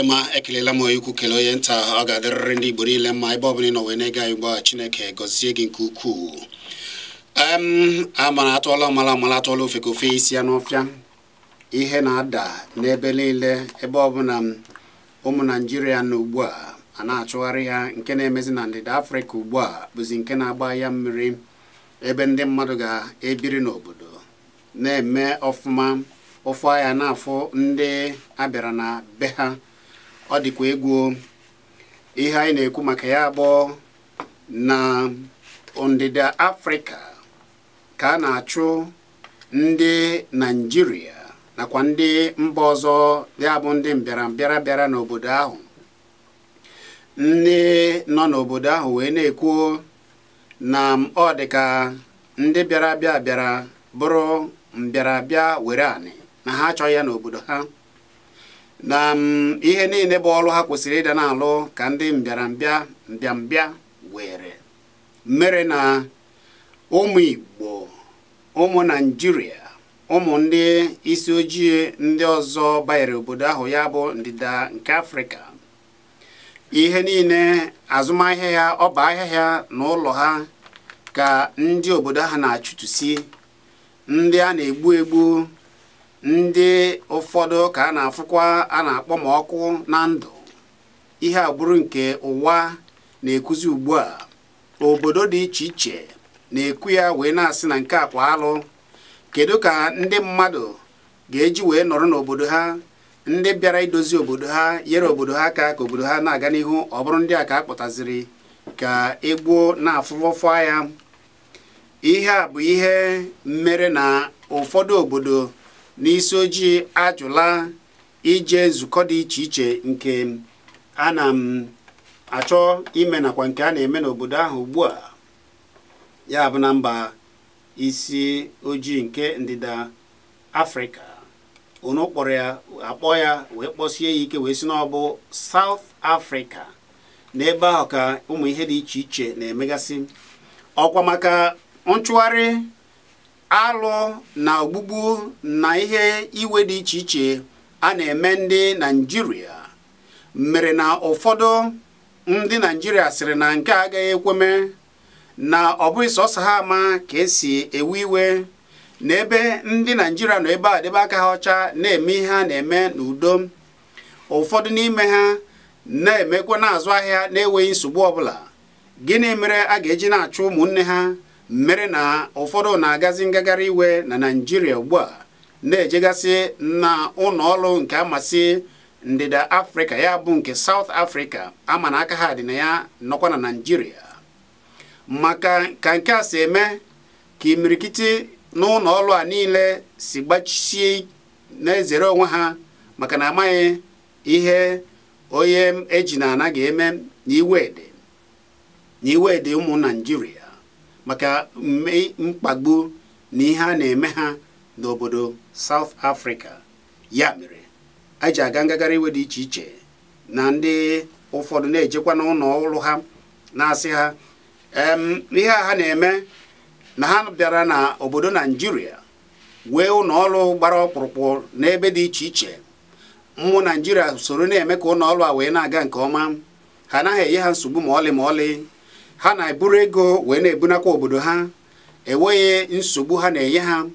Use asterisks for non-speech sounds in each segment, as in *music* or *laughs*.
adịma ekelela m ikwu kele onye nta ọ ga-adịrịrị ndị Igbo niile mma ebe ọbụla ị nọ wee na-ege anyị Chineke gọzie gị nke ukwuu amara atụọla ọmala ọmala atụọla ofe ka ofe isi ya n'ọfịa ihe na-ada n'ebe niile ebe ọbụla ụmụ naijiria na ugbu a a na-achụgharị ha nke na-emezi na ndịda Afrịka ugbu a bụzi nke na-agba ya mmiri ebe ndị mmadụ ga-ebiri n'obodo na-eme ọfụma ụfụ ahịa na-afụ ndị abịara na be ha ọ dịkwa egwu ihe anyị na-ekwu maka ya bụ na ndịda afrịka ka a na-achụ ndị naijiria nakwa ndị mba ọzọ ya bụ ndị mbịarambịara bịara n'obodo ahụ ndị nọ n'obodo ahụ wee na-ekwu na ọ dịka ndị bịara bịa bịara bụrụ mbịarabịa were anị na ha achọghị ya n'obodo ha na mm, ihe niile bụ ọrụ ha kwesịrị ịda na-alụ ka ndị mbịarambịa mbịambịa were mere na ụmụ Igbo ụmụ Naịjirịa ụmụ ndị isi ojii ndị ọzọ banyere obodo ahụ ya bụ ndịda nke Afrịka ihe niile azụmahịa ya ọba ahịhịa na ụlọ ha ka ndị obodo ha na-achụtụsi ndị a na-egbu egbu ndị ụfọdụ ka a na-afụkwa a na-akpọ ma ọkụ na ndụ ihe agbụrụ nke ụwa na-ekuzi ugbu a obodo dị iche iche na-ekwu ya wee na-asị na nke akwa alụ kedu ka ndị mmadụ ga-eji wee nọrọ n'obodo ha ndị bịara idozi obodo ha nyere obodo ha aka ka obodo ha na-aga n'ihu ọ bụrụ ndị a ka a kpọtaziri ka egbuo na-afụfọfọ ya ihe a bụ ihe mere na ụfọdụ obodo n'isi ojii ajụla ije nzukọ dị iche iche nke a na m achọ ime nakwa nke a na-eme n'obodo ahụ ugbu a ya bụ na mba isi ojii nke ndịda afrịka unu kpọrọ ya akpọ ya wee kpọsie ya ike wee si n'ọbụ South Africa n'ebe ahụ ka ụmụ ihe dị iche iche na-emegasị ọkwa maka nchụgharị alụ na ogbugbu na ihe iwe dị iche iche a na-eme ndị naijiria mere na ụfọdụ ndị naijiria sịrị na nke a agaghị ekweme na ọ bụghị sọsọ ha ama ka esi ewe iwe na ebe ndị naijiria nọ ebe a debe aka ha ọcha na-eme ihe a na-eme n'udo ụfọdụ n'ime ha na-emekwa na ahịa na-enweghị nsogbu ọbụla gịnị mere a ga-eji na-achụ ụmụnne ha mere na ụfọdụ na-agazi ngagharị iwe na naijiria ugbu a na-ejegasị na ọrụ nke amasị ndịda afrịka ya bụ nke saut afrịka ama na aka ha dị na ya nọkwa na naijiria maka ka nke a si eme ka imirikiti na ọrụ a niile si gbachisie na-ezere onwe ha maka na amaghị ihe onye eji na ana eme n'iwe ụmụ naijiria maka mkpagbu na ihe a na-eme ha n'obodo South Africa ya mere anyị ji aga ngagharị iwe dị iche iche na ndị ụfọdụ na-ejekwa n'ụlọ ọrụ ha na-asị ha ihe a ha na-eme na ha bịara na obodo Naijiria wee ụlọ ọrụ gbara ọkpụrụkpụ n'ebe dị iche iche mmụ Naijiria soro na-eme ka ụlọ a wee na-aga nke ọma ha anaghị enye ha nsogbu ma ọlị ma ọlị ha na-eburu ego wee na-ebunakwa obodo ha enweghị nsogbu ha na-enye ha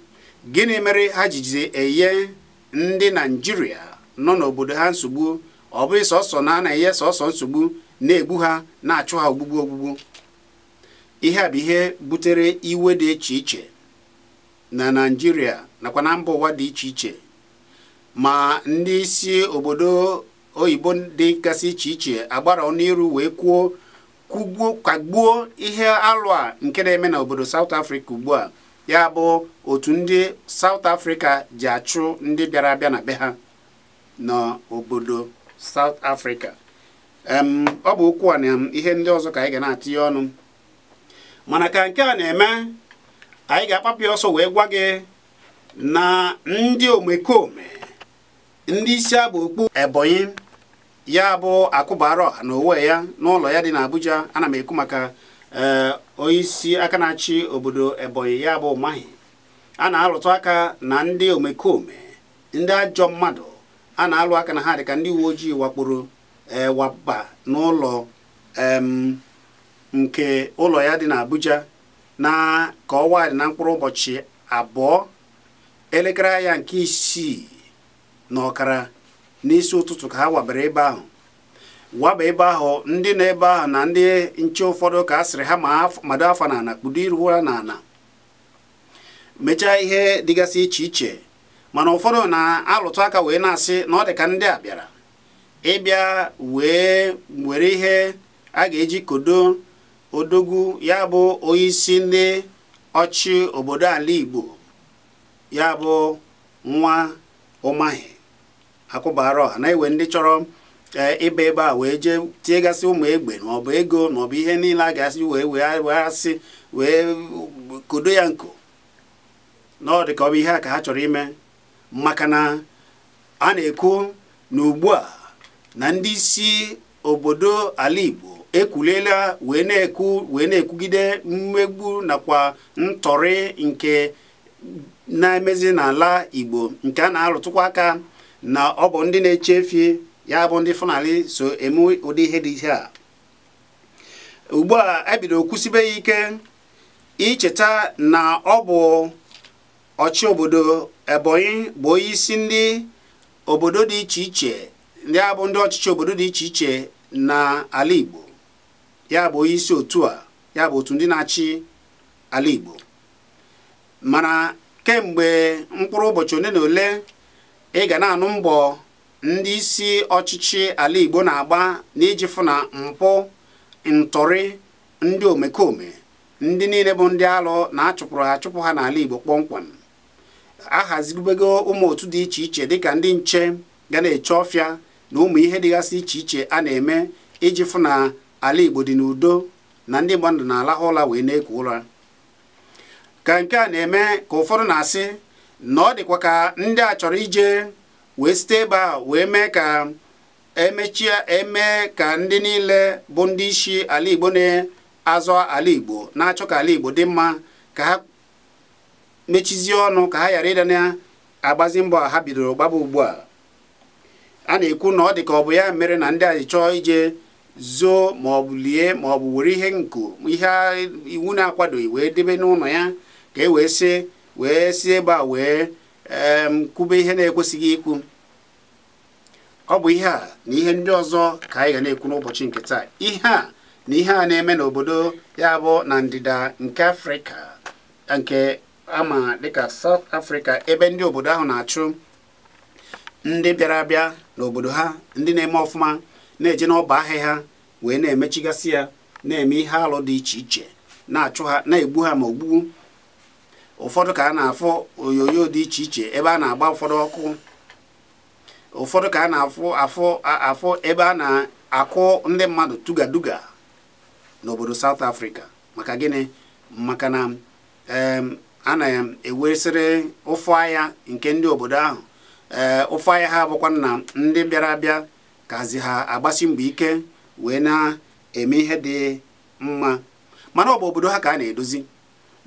gịnị mere ha jiji enye ndị naijiria nọ n'obodo ha nsogbu ọ bụghị sọsọ na a na-enye sọsọ nsogbu na-egbu ha na-achụ ha ogbugbu ogbugbu ihe a bụ ihe butere iwe dị iche iche na naijiria nakwa na mba ụwa dị iche iche ma ndị isi obodo oyibo dị gasị iche iche agbara ọnụ iru wee kwuo kwagbuo ihe alụ a nke na-eme n'obodo South afrịka ugbu a ya bụ otu ndị South afrịka ji achụ ndị bịara abịa na be ha n'obodo South afrịka. ọ bụ okwu a na ihe ndị ọzọ ka anyị ga na ya ọnụ mana ka nke a na-eme anyị ga-akpapịa ọsọ wee gwa gị na ndị omekome ndị isi abụ okpu Ebonyi ya bụ akụbara ọha na owe ya n'ụlọ ya dị na Abuja ana m ekwu maka eh, onyeisi aka na-achị obodo Ebonyi ya bụ mahi a na-alụtụ aka na ndị omekome ndị ajọ mmadụ a na-alụ aka na ha ka ndị uwe ojii wakporo ewaba eh, n'ụlọ nke ụlọ ya dị na Abuja na ka ọwa dị na mkpụrụ ụbọchị abụọ elekere ya nke isii na ọkara n'isi ụtụtụ ka ha wabara ebe ahụ waba ebe ahụ ndị nọ ebe ahụ na ndị nche ụfọdụ ka a sịrị ha mado afa n'ala kpudo iru ha n'ala mechaa ihe dịgasị iche iche mana ụfọdụ na-alụtụ aka wee na-asị na ọ dị ka ndị a bịara ịbịa wee were ihe a ga-eji kodo odogwu ya bụ onyeisi ndị ọchị obodo ala Igbo ya bụ nwa ụmahị akwụbara ọha na iwe ndị chọrọ eh, ịba ebe a wee jee tiegasị ụmụ egbe maọbụ ego maọbụ ihe niile a ga-asị wee wee asị wee kodo ya nko na ọ dị ka ọ bụ ihe a ka ha chọrọ ime maka na a na-ekwu na ugbu a na ndị isi obodo ala Igbo ekwuliela wee na-ekwu wee na-ekwugide mmegbu nakwa ntọrị nke na-emezi n'ala Igbo nke a na-arụtụkwa aka na ọ bụ ndị na-eche fie ya bụ ndị fanali so eme ụdị ihe dị ihe a ugbu a ebido kwụsịbeghị ya ike icheta na ọ bụ ọchị obodo Ebonyi bụ onye isi ndị obodo dị iche iche ndị a bụ ndị ọchịchị obodo dị iche iche na-ala Igbo ya bụ onye isi otu a ya bụ otu ndị na-achị ala Igbo mana kemgbe mkpụrụ ụbọchị ole na ole ị ga na-anụ mbọ ndị isi ọchịchị ala Igbo na-agba n'iji fụ na mpụ ntọrị ndị omekome ndị niile bụ ndị alụ na-achụpụrụ achụpụ ha n'ala Igbo kpọmkwem ahaziribego ụmụ otu dị iche iche dịka ndị nche ga na-eche ọfịa na ụmụ ihe dịgasị iche iche a na-eme iji fụ na ala Igbo dị n'udo na ndị mmadụ na-alahụ ụla wee na-eku ụra ka nke a na-eme ka ụfọdụ na-asị na ọ dịkwa ka ndị a chọrọ ije wee site ebe a wee mee ka emechie eme ka ndị niile bụ ndị isi ala Igbo na-azọ ala Igbo na-achọ ka ala Igbo dị mma ka ha mechizie ọnụ ka ha ghara ịda na-agbazi mbọ ha bidoro gbaba ugbu a a na-ekwu na ọ dị ka ọ bụ ya mere na ndị a chọọ ije zoo ma lie ma were ihe nko ihe iwu na-akwadoghị wee debe n'ụlọ ya ka e wee sị wee si ebe a wee kwube ihe na-ekwesịghị ikwu ọ bụ ihe a na ihe ndị ọzọ ka anyị ga na-ekwu n'ụbọchị nke taa ihe a na ihe a na-eme n'obodo ya bụ na ndịda nke afrịka nke ama dịka South Africa ebe ndị obodo ahụ na-achụ ndị bịara abịa n'obodo ha ndị na-eme ọfụma na-eje n'ọba ahịa ha wee na-emechigasị ya na-eme ihe alụ dị iche iche na-achụ ha na-egbu ha ma ogbugu ụfọdụ ka a na-afụ onyonyo dị iche iche ebe a na-agba ụfọdụ ọkụ ụfọdụ ka a na-afụ afụ afụ ebe a na-akụ ndị mmadụ tugaduga n'obodo South Africa maka gịnị maka na a na ewesịrị ụfụ ahịa nke ndị obodo ahụ ee ụfụ ahịa ha abụkwa na ndị bịara abịa kazi ha agbasi mgbe ike wee na-eme ihe dị mma mana ọ bụ obodo ha ka a na-edozi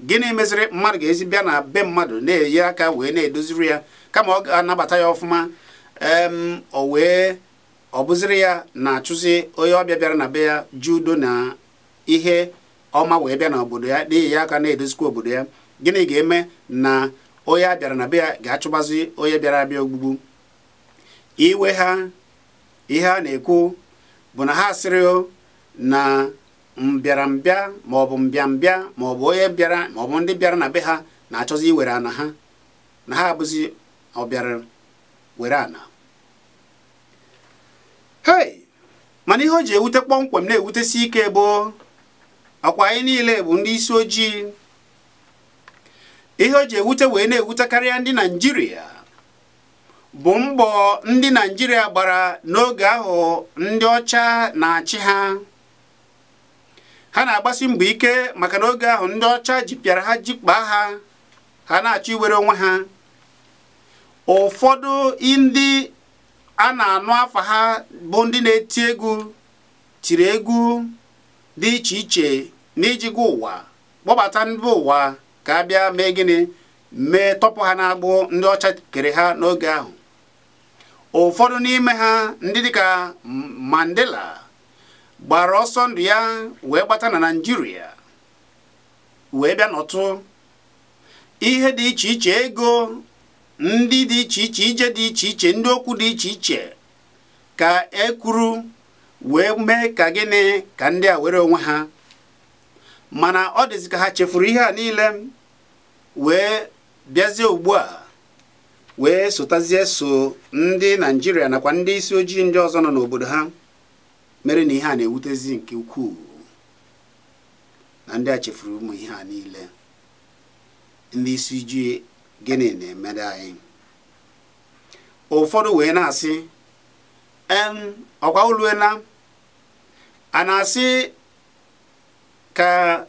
gịnị meziri mmadụ ga-ezi bịa na be mmadụ na-eyi aka wee na-edoziri ya kama ọ ga-anabata ya ọfụma em o wee ọ bụziri ya na-achụzi onye ọbịa bịara na be ya ji udo na ihe ọma wee bịa na obodo ya n'ihi ya aka na-edozikwa obodo ya gịnị ga-eme na onye a bịara na be ya ga-achụgbazi onye bịara abịa ogbugbu iwe ha ihe a na-ekwu bụ na ha asịrịo na mbịarambịa maọbụ mbịambịa maọbụ onye bịara maọbụ ndị bịara na be ha na-achọzi iwere ana ha na ha abụzi ọbịara were ana hei mana ihe o ji ewute kpọmkwem na-ewutesi ike bụ akwa anyị niile bụ ndị isi ojii ihe o ji ewute wee na-ewute karịa ndị naijiria bụ mbọ ndị naijiria gbara n'oge ahụ ndị ọcha na-achị ha ha na-agbasi mbọ ike maka na oge ahụ ndị ọcha jipịara ha jikpaa ha ha na-achọ iwere onwe ha ụfọdụ ndị a na-anụ afa ha bụ ndị na-eti egwu tiri egwu dị iche iche gwa ụwa kpọbata ndị ụwa ka a bịa mee gịnị mee tọpụ ha na-agbụ ndị ọcha kere ha n'oge ahụ ụfọdụ n'ime ha ndị dịka Mandela gbara ọsọ ndụ ya wee gbata na naijiria wee bịa nọtụ ihe dị iche iche ego ndị dị iche iche ije dị iche iche ndị okwu dị iche iche ka e kwuru wee mee ka gịnị ka ndị a were onwe ha mana ọ dịzi ka ha chefuru ihe a niile wee bịazie ugbu a wee sotazie so ndị naijiria nakwa ndị isi ojii ndị ọzọ nọ n'obodo ha mere na ihe a na-ewutezi nke ukwuu na ndị a chefuru ụmụ ihe a niile ndị isi ji gịnị na-emere anyị ụfọdụ wee na-asị ọkwa oluela a na-asị ka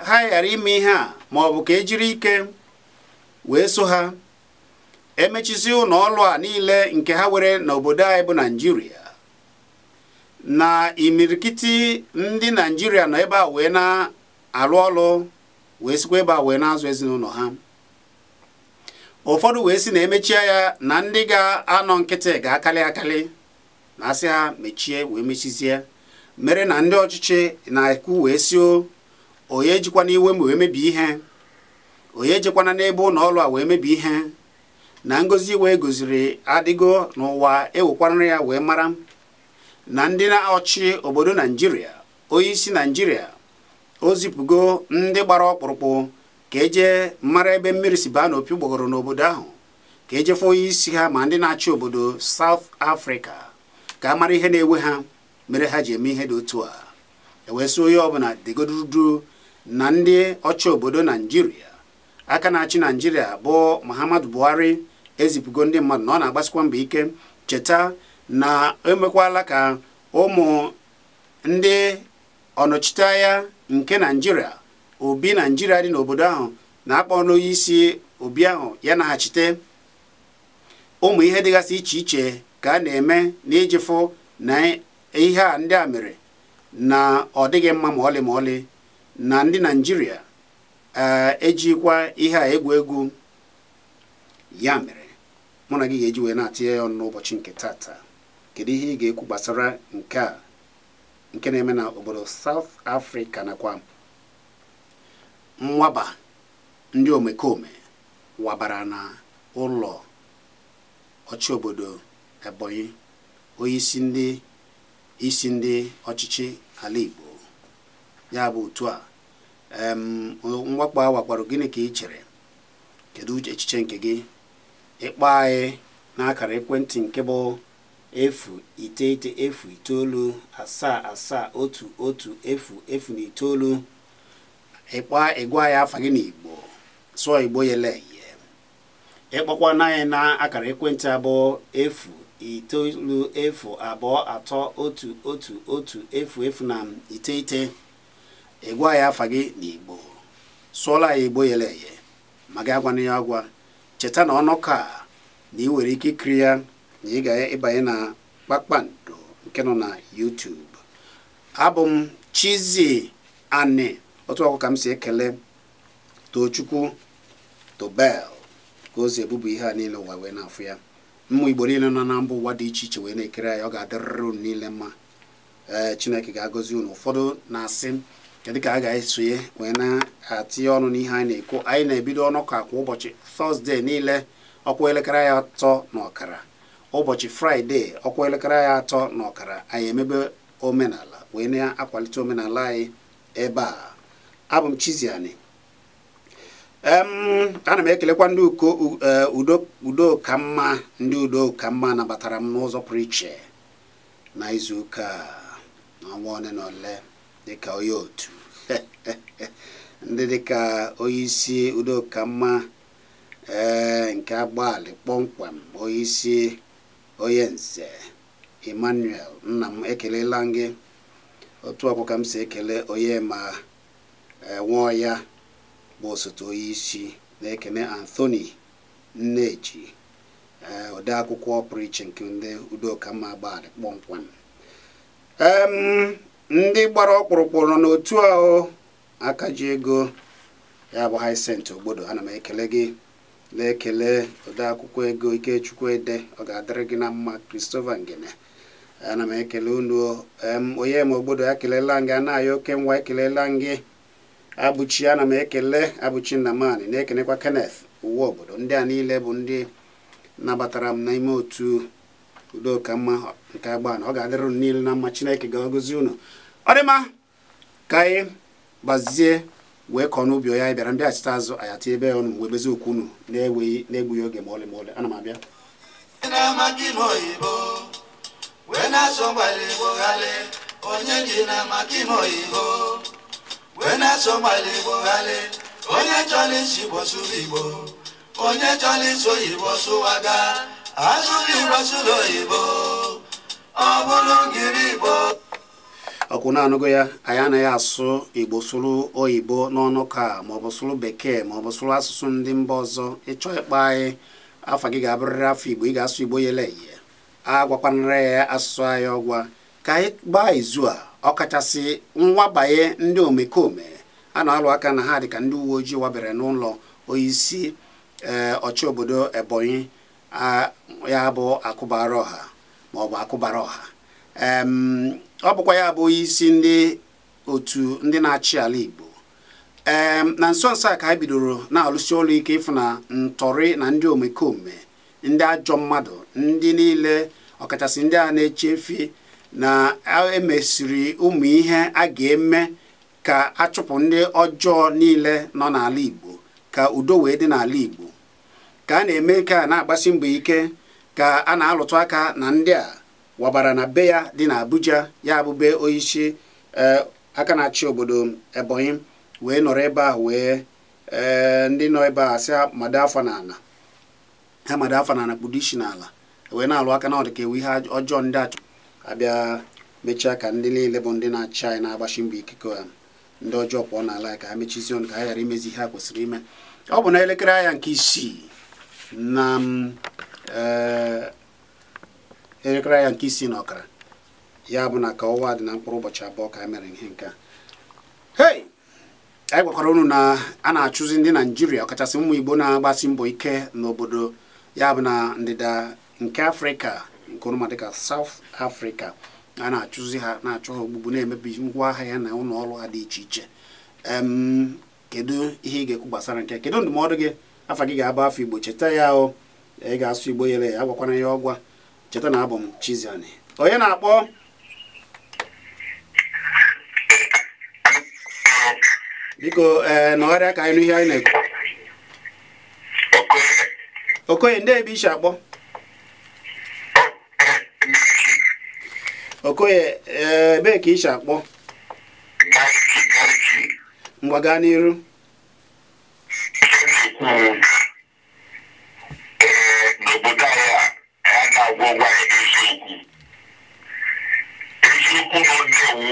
ha ghara ime ihe a ma ọ ka ejiri ike wee so ha emechisi ụlọ ọlụ a niile nke ha were n'obodo anyị bụ naijiria na imirikiti ndị naijiria nọ ebe a wee na-alụ ọlụ wee sikwa ebe a wee na-azụ ezinụlọ ha ụfọdụ wee si na emechie ya na ndị ga-anọ nkịtị ga-akali akali na asị mechie wee mechizie mere na ndị ọchịchị na-ekwu wee si o onye jikwana iwe m wee mebie ihe onye jikwana n'ebe ụlọ a wee mebie ihe na ngozi wee goziri adịgo n'ụwa ewekwarịrị ya wee mara na ndị na-achị obodo naijiria onyeisi naijiria o zipụgo ndị gbara ọkpụrụkpụ ka eje mara ebe mmiri si baa n'opi gbọgọrọ n'obodo ahụ ka ejefe onye onyeisi ha ma ndị na-achị obodo South Africa ka a mara ihe na-ewe ha mere ha ji eme ihe dị otu a ewee onye ọbụla degodudu na ndị ọchị obodo naijiria aka na-achị naijiria bụ Muhammadu Buhari ezipụgo ndị mmadụ na ọ na-agbasikwa mbọ ike cheta na emekwala ka ụmụ ndị ọnọchiteanya nke naijiria obi naijiria dị n'obodo ahụ na-akpọ n'onye isi obi ahụ ya naghachite ụmụ ihe dịgasị iche iche ka a na-eme n'ijifụ na ihe a ndị a mere na ọ dịghị mma ma ọlị ma ọlị na ndị naijiria eh, ejikwa ihe a egwu egwu ya mere mụ na gị ga-eji wee na-atụ ya ọnụ n'ụbọchị nke tata kedu ihe ị ga-ekwu gbasara nke a nke na-eme na obodo South Africa nakwa mwaba ndị omekome wabara na ụlọ ọchị obodo Ebonyi onye isi ndị isi ndị ọchịchị ala Igbo ya bụ otu a mwakpo a wakparo gịnị ka ị chere kedu echiche nke gị ịkpọ anyị e n'akara ekwentị nke bụ efu iteghete efu itoolu asaa asaa otu otu efu efu na itoolu ịkpa ịgwa ya afa gị n'Igbo sụọ Igbo yele ịkpọkwa anyị na akara ekwentị abụọ efu itoolu efu abụọ atọ otu otu otu efu efu na iteghete ịgwa ya afa gị n'Igbo sụọla ya Igbo yele ihe ma gị agwana ya agwa cheta na ọnụka na ị nwere ike kiri ya na ị ga-ịbanye na kpakpando nke nọ na YouTube abụ m chizi Ani otu ọkụ ka m si ekele Tochukwu Tobel ka ozi si ebubu ihe a niile ụwa wee na-afụ ya mmụ Igbo niile nọ na mba ụwa dị iche iche wee na-ekere ya ọ ga-adịrịrị unu niile mma ee Chineke ga-agọzi unu ụfọdụ na-asị kedu ka a ga-esonye wee na-atinye ọnụ n'ihe anyị na-ekwu anyị na-ebido ọnụ ka kwa ụbọchị Tọzdee niile ọkwa elekere ya atọ na ọkara ụbọchị fraịde ọkwa elekere anyị atọ na ọkara anyị emebe omenala wee na-akwalite omenala anyị ebe a abụ m Chiziani ana m ekelekwa ndị e, udo ka mma ndị udo ka mma nabatara m n'ụzọ pụrụ iche na ụka n'ọnwa ole na ole dịka onye otu *laughs* ndị dịka onye isi e, nke agbalị kpọmkwem onye onye nse emmanuel nna m ekelela gị otu ọkụ ka m si ekele onye ma enwụọ ya bụ osote onye isi na-ekene anthony nneji e, ode akwụkwọ ọpụrụiche nke ndị udokamma gbadị kpọmkwem ndị gbara ọkpụrụkpụ nọ n'otu ahụ aka ego ya bụ Hyacinth Ogbodo ana m ekele gị na-ekele odeakwụkwọ ego ikechukwu ede ọ ga-adịrị gị na mma kristofa Ngene ana m ekele unu onye ma obodo ya kelela gị anaghị oke nwa ekelela gị abụchi ana m ekele abụchi nnamani na ekenekwa Kenneth uwe obodo ndị a niile bụ ndị nabatara m n'ime otu udokamma nke agbana ọ ga-adịrị unu niile na mma chineke ga-agọzi unu ọ dịma ka anyị gbazie wee kọọ n'ubi ya anyị bịara mbịachite azụ ayata ebe ya ọnụ wee bezi okwu unu na-enweghị na oge ma ọlị ma ọlị ana abịa ọkwụ na-anụgo ya anyị anaghị asụ igbo sụrụ oyibo n'ọnụ ka maọbụ sụrụ bekee maọbụ sụrụ asụsụ ndị mba ọzọ ịchọ ịkpa anyị afa gị ga-abụrịrị afọ igbo ị ga-asụ igbo yele ihe agwakwanara ya asụsụ anyị ọgwa ka anyị gbaa izu a ọkachasị nwabanye ndị omekome a na-alụ aka na ha dịka ndị uwe ojii wabere n'ụlọ onyeisi ee eh, ọchị obodo ebonyi ya bụ akụbara ọha maọbụ akụbara ọha ọ bụkwa ya bụ isi ndị otu ndị na-achị ala Igbo na nso nso a ka e bidoro na-alụsi ọrụ ike ịfụ na ntọrị na ndị omekome ndị ajọ mmadụ ndị niile ọkachasị ndị a na-echefi eche na emesiri ụmụ ihe a ga-eme ka achụpụ ndị ọjọọ niile nọ n'ala Igbo ka udo wee dị n'ala Igbo ka a na-eme ka na-agbasi mbọ ike ka a na-alụtụ aka na ndị a wabara na be ya dị na Abuja ya bụbe onyeisi e, aka na-achị obodo Ebonyi wee nọrọ ebe a wee e, ndị nọ ebe a si ha mado afọ n'ala ha mado afọ n'ala isi wee na-alụ aka na ọ ka ewu ihe ọjọọ ndị achọ abịa mechaa ka ndị niile bụ ndị na-achị anyị na-agbachi mbọ ikike ha um, ndị ọjọọ pụọ n'ala ka ha mechizie ọnụ ka ha ghara imezi ihe ha kwesịrị ime ọ bụ na elekere anya nke isii na e, elekere ya nke isii na ọkara ya bụ na ka ọnwa dị na mkpụrụ ụbọchị abụọ ka e mere ihe nke a hei anyị gwakwara unu na a na-achụzi ndị naijiria ọkachasị ụmụ igbo na-agbasi mbọ ike n'obodo ya bụ na ndịda nke afrịka nke ọnụma ka saụt afrịka a na-achụzi ha na-achụ ha ogbugbu na-emebi ngwa ahịa ya na ụlọ ọrụ ha dị iche iche kedu ihe ị ga-ekwu gbasara nke kedu ndụmọdụ gị afa gị ga abụ afọ igbo cheta ya o ị ga-asụ igbo yere ya agwakwana ya ọgwa cheta na abụ m Chiziani onye na-akpọ biko ee eh, nọgharịa ka anyị nụ ihe anyị na-ekwu okoye ndị ebe ishi akpọ okoye eh, ebee ka ishi akpọ ngwa gaa n'iru n'obodo anyị a aka gwọwa eziokwu eziokwu na ọ na-ewu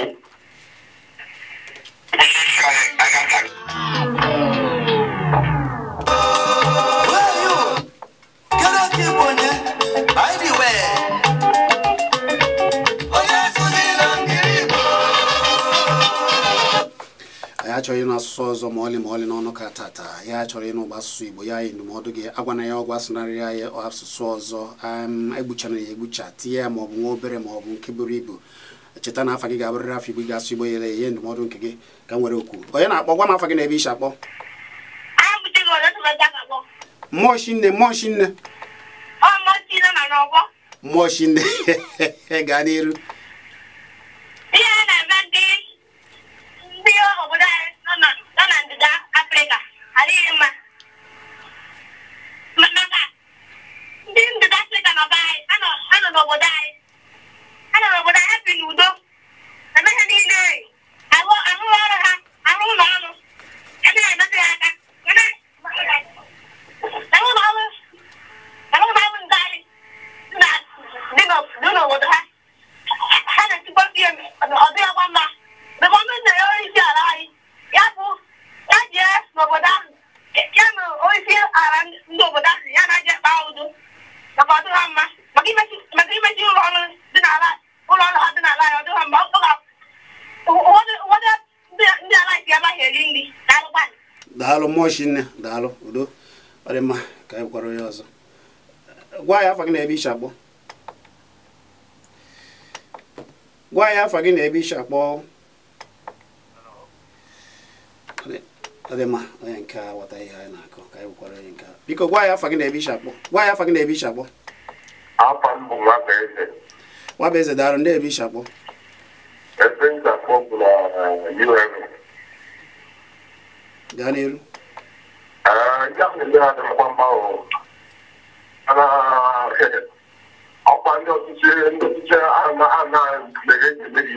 onye isi anyị agaghị achọghị ịnụ asụsụ ọzọ ma ọlị ma ọlị n'ọnụ ka tata ya achọrọ ịnụ ụgbọ asụsụ igbo ya yi ndụmọdụ gị agwana ya ọgwụ asụnarịrị ya asụsụ ọzọ egbuchana ya egbucha tinye ya maọbụ nwa obere maọbụ nke buru ibu cheta na afa gị ga-abụrịrị afọ igbo ga-asụ igbo yere ihe ndụmọdụ nke gị ka m were okwu onye na-akpọ gwa m afa gị na ebe isi akpọ mmụọ chinne mmụọ chinne mmụọ chinne *laughs* gaa n'iru ochi nne daalụ udo ọ dị mma ka anyị gwara ọzọ gwa ya afa gị na ebe iche akpọ gwa ya afa gị na ebe iche akpọ ọ dị onye nke a ihe anyị ka anyị nke a biko gwa ya afa gị ebe akpọ gwa ya afa gị na ebe akpọ daalụ ebe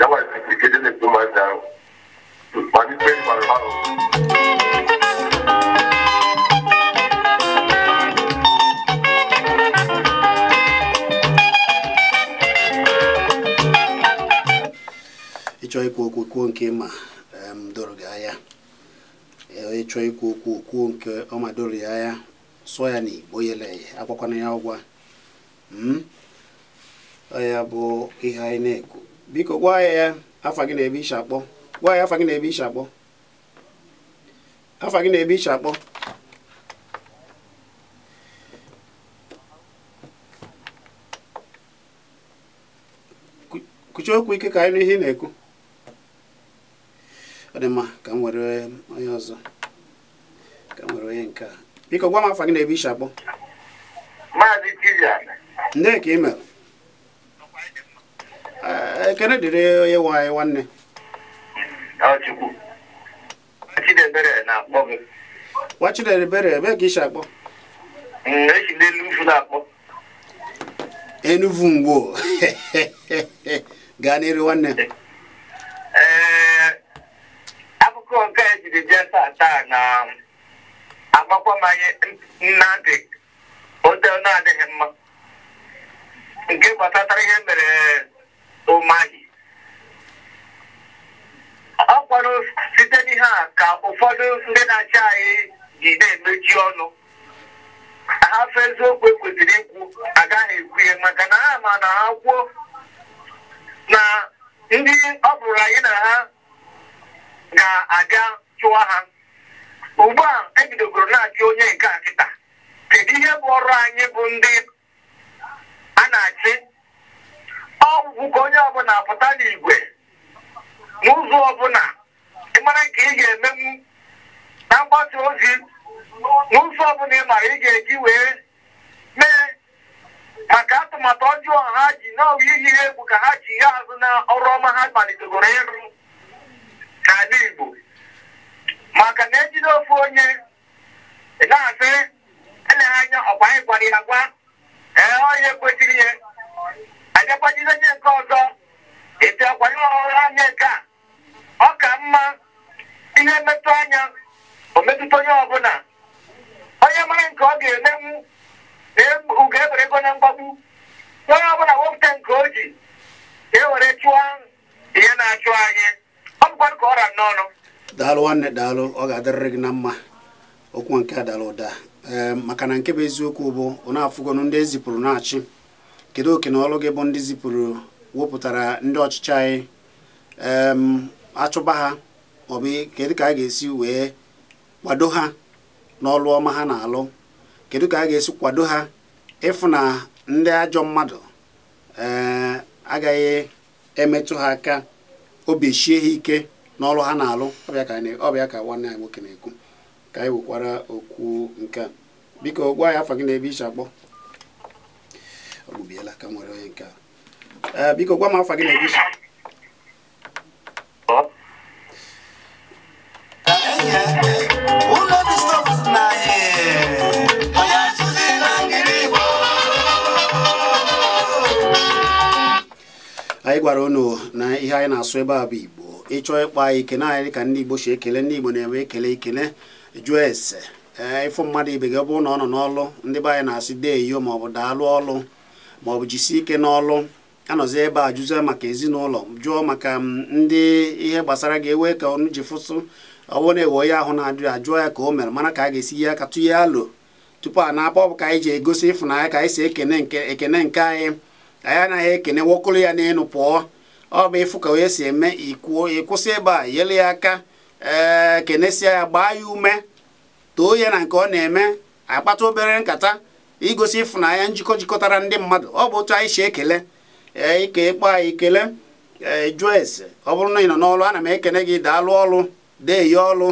ya nwere ike dị na ikpe ahụ ịchọ ikwu okwu kwuo nke ma doro gị anya ịchọ ikwu okwu kwuo nke ọma doro ya anya sụọ ya n'igbo yele agbakwana ya ụgwọ hmm? ọ ya bụ ihe anyị na-ekwu biko gwa ya ya afa gị na-ebe iche akpọ gwa ya afa gị na-ebe iche akpọ afa gị na-ebe iche akpọ kuchie okwu ike ka anyị n'ihe ị na-ekwu ọ dị mma ka m were onye ọzọ ka m were onye nke a biko gwa m afa gị na-ebe iche akpọ maazị Chidian nne ka ị mere ekele eh, dịrị onye nwe anyị nwanne nwa chidebere ebe ka isi akpọ mm, enuvu e mgbo *laughs* gaa n'iru nwanne eh, akụkọ nke ejiri bịa taa taa na agbakwamanye nnadị ote na-adịghị mma nke gbatara ihe mere ụmahị ọ kwanụ site n'ihe a ka ụfọdụ ndị na-achị anyị ji na-emechi ọnụ hafụ eziokwu ekwesịrị ikwu agaghị ekwu ihe maka na ha ma na ha kwuo na ndị ọ bụrụ anyị na ha ga-abịa chụwa ha ugbu a ebidogoro na-achị onye nke a kedu ihe bụ ọrụ anyị bụ ndị a na-achị ọgwụgwụ ka onye ọbụla pụta n'igwe n'ụzọ ọbụla ịmara nke ị ga-emenwu na mgbasa ozi n'ụzọ ọbụla ị mara ị ga-eji wee mee maka atụmatụ ọjọọ ha ji n'ọwa ihe ha egwu ka ha ji ya azụ na ọrụ ọma ha malitegoro ịrụ n'ala Igbo maka na ejide ofu onye na-asị eleghị anya ọkwa anyị gwara ya gwa ee onye kwesịrị ihe agakwajizi onye nke ọzọ etu akwanye ọhụrụ anya nke a ọ ka mma ihe mmetụ anya o metụta onye ọbụla onye mara nke ọ ga-emenwu na e, ugo ebere ego na mgbagbu onye ọbụla wepụta nke o ji ewere chụọ ihe na-achụ anyị ọ bụkwa ka ọra n'ọnụ daalụ nwanne daalụ ọ ga-adịrịrị gị na mma okwu nke a dara ụda maka na nke bụ eziokwu bụ ọ na-afụgonụ ndị ezipụrụ na-achị kedu oke na gị bụ ndị zipụrụ wepụtara ndị ọchịchị anyị achụba ha maọbụ kedu ka a ga-esi wee kwado ha n'ọrụ ọma ha na-alụ kedu ka a ga-esi kwado ha ịfụ na ndị ajọ mmadụ eh, agaghị emetụ ha aka obi ha ike n'ọrụ ha na-alụ ọbịa ka nwanne anyị nwoke na-ekwu ka anyị wekwara okwu nke a biko gwa ya afọ gị na ebe ichi akpọ ọ gwụbiela ka nwere onye nke a eh, biko gwa m afa gị na-egosi anyị gwara unu na ihe anyị na-asụ ebe a bụ igbo ịchọọ ịkpa ikene anyị dị ka ndị igbo si ekele ndị igbo na-enwe ekele ikele jụọ ese ee eh, ịfụ mmadụ ibe gị ọ bụrụ na ọ nọ n'ọlụ ndị be anyị na-asị deeyo maọbụ daalụ ọlụ bụ jisie ike n'ọlụ anọzi ebe a jụzie maka ezinụlọ jụọ maka mm, ndị ihe gbasara gị ewee ka ọnụ ji fụsụ ọwụ na-ewe onye ahụ na adị ya jụọ ya ka o mere mana ka a ga-esi ya aka tụnye alụ tupu a na-akpọ bụ ka anyị ji egosi ịfụnanya ka anyị si ekene nke ekene nke anyị anyị anaghị ekene nwokolo ya n'elu pụọ ọ bụ ịfụ ka onye si eme ikwuo ịkwụsị ebe a yele ya aka ee kenesia ya gbaa ya ume too ya na nke ọ na-eme akpata obere nkata igosi ịfụnanya njikọ jikọtara ndị mmadụ ọ bụ otu anyị si ekele ee ike ịkpọ anyị kele jụọ ese ọ bụrụ na ị nọ n'ọlụ ana m ekene gị daalụ ọlụ dee ọlụ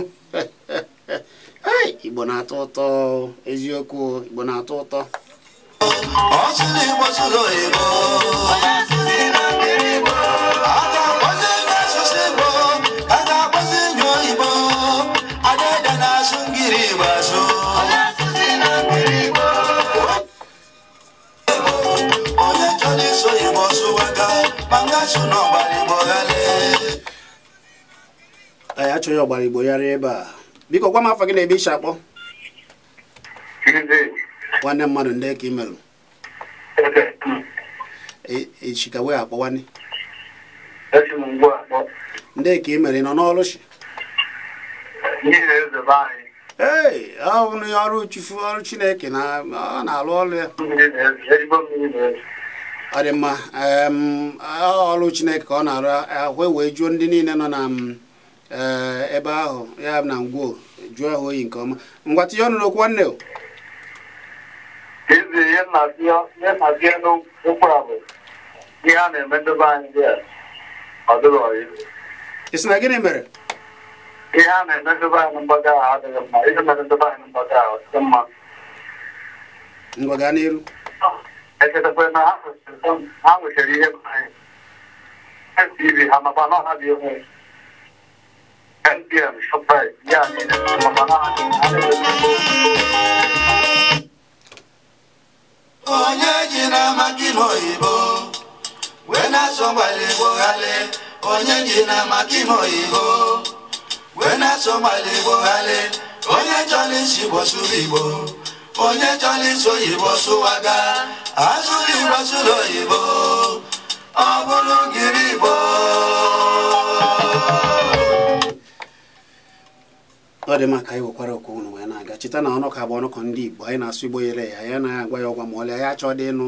*laughs* igbo na-atọ ụtọ eziokwu igbo na-atọ ụtọ anyị achọghị ọgbara igbo yara ebe a biko gwa m afọ gị na ebe ishi akpọ nwanne mmadụ ndị ka imerụ echika e, e wee akpọ nwanne ndị ka imere nọ n'ọrụ shi ee ọ bụ ọrụ chufu ọrụ chineke na ọ na alụ ọrụ ya ọ dị mma ọrụ chineke ka ọ na-arụ ahụ wee jụọ ndị niile nọ na e, ebe ahụ ya na ngwoo jụọ ha oyi nke ọma ngwa tinye ọnụ n'okwu nwanne ị sị na gịnị mere ihe a na-eme ndebe anyị mgbaga ahụ adịghị mma ihe mere ndebe anyị mgbaga ahụ dị mma ngwa gaa n'elu Ese se fue más hago ah, que dije el tibi hama bana hadi yok. El diyen şüphe yani hama bana hadi Onye jina makino ibo Wena somali bohale Onye jina makino ibo Wena somali bohale Onye jolisi bosu ibo onye chọrọ iso oyibo sụwaga azụrụ igbo sụrụ oyibo ọ bụrụ ngiri igbo ọ dị mma ka anyị wekwara okwu ụnụ wee na-aga cheta na ọnụkọ bụ ọnụkọ ndị igbo anyị na-asụ igbo yere ya ya na agwa ya ọgwa ma ọlị anyị achọ dị ịnụ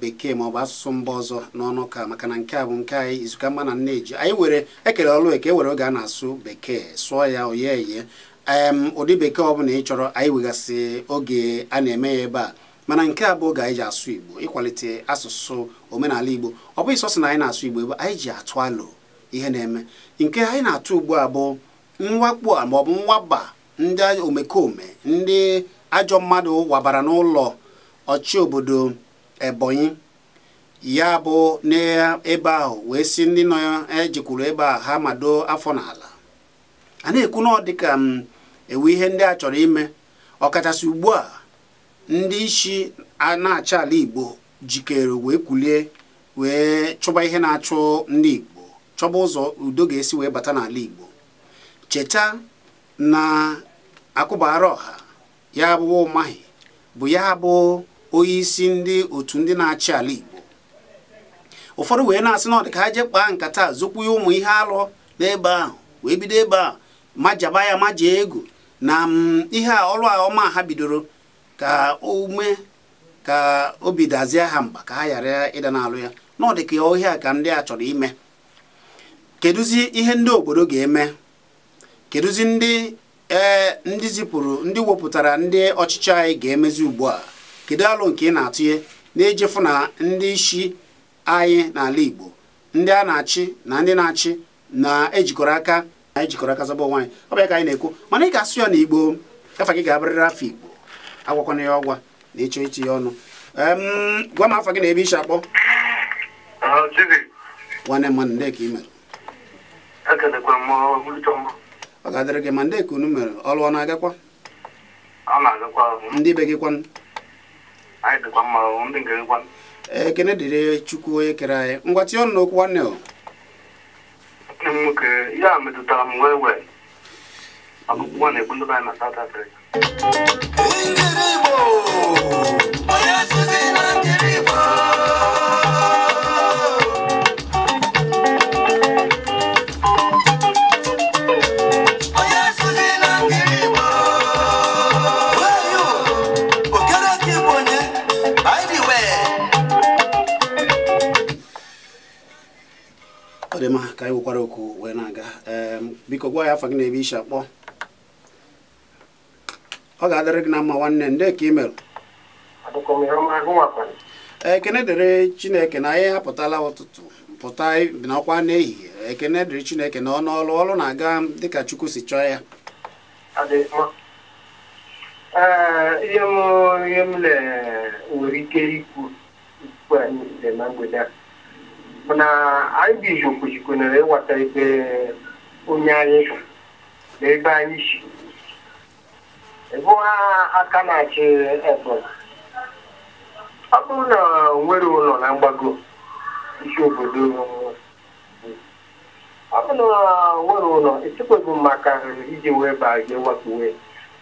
bekee ma ọ bụ asụsụ mba ọzọ n'ọnụka maka na nke a bụ nke anyị izuka mma na nneji anyị were ekele ọlụ eke e were oge a na-asụ bekee sụọ ya oye eye ụdị bekee ọ bụla ị chọrọ anyị wegasị oge a na-eme ya ebe a mana nke a bụ oge anyị ji asụ igbo ịkwalite asụsụ omenala igbo ọ bụghị sọsọ na anyị na-asụ igbo ebe anyị ji atụ alụ ihe na-eme nke anyị na-atụ ugbu a bụ mwakpo a maọbụ mwaba ndị omekome ndị ajọ mmadụ wabara n'ụlọ ọchị obodo ebonyi ya bụ n'ebe ahụ wee si ndị nọ ejikwuru ebe a ha mado afọ n'ala a na-ekwu na ọ dịka m um, ewe ihe ndị a chọrọ ime ọkachasị ugbu a ndị isi a na-achị ala Igbo jikere wee kwulie wee chọba ihe na-achụ ndị Igbo chọba ụzọ udo ga-esi wee bata n'ala Igbo cheta na akụbara ọha ya bụ ụmahi bụ ya bụ onye isi ndị otu ndị na-achị ala Igbo ụfọdụ wee na-asị na ọ dịka ha jee kpaa nkata zokwuye ụmụ ihe alụ n'ebe ahụ wee bido ebe ahụ majaba ya maja ego na mm, ihe a ọrụ a ọma ha bidoro ka ume ka obi dazie ha mba ka ha ghara ịda n'alụ ya n'ọdịka ọ ka a ka ndị a chọrọ ime kedụzi ihe ndị obodo ga-eme kedụzi ndị ee ndị zipụrụ ndị wepụtara ndị ọchịchị anyị ga-emezi ugbu a kedu alụ nke ị na-atụnye na-ejefu na ndị isi anyị n'ala Igbo ndị a na-achị na ndị na-achị na-ejikọrọ aka anyị jikọrọ aka zọba nwaanyị ọ bụ ya ka anyị na-ekwu mana ị ga-asụ ya na igbo afa gị ga-abịrịrị afọ igbo agwakwana ya ọgwa na ịchọ iti ya ọnụ gwa m afa gị na ebe ishi akpọ nwanne m mana ndeka i mere ọ ga-adịrị gị ma ndeka unu mere ọrụ ọ na-agakwa ndị be gị kwanụ ekene dịrị chukwu onye kere anyị ngwa tinye ọnụ n'okwu nwanne o nwanne m nwoke ya metụtara m wee wee ọgụgụ na-egbu ndị anyị na South Africa ya gị na-ebe isi akpọ ọ ga-adịrị gị na mma nwanne nde ka ị merụ ekene dịrị chineke na anyị apụtala ụtụtụ pụta n'ọkwa n'ehihie ekene dịrị chineke na ọnụ ọlụ ọlụ na-aga dịka chukwu si chọọ ya ihe m ihe m nwere ike ikwu ikwu anyị na mgbede a na anyị bụ izu kwuchikwunere ịwata ebe onye anyị bụ na ebe anyị si bụ ha aka na-achị ebonyi ọ bụrụ na nwere ụlọ na mgbago isi obodo ọ bụrụ na nwere ụlọ echekwebụ maka iji wee baa gị wakpuwe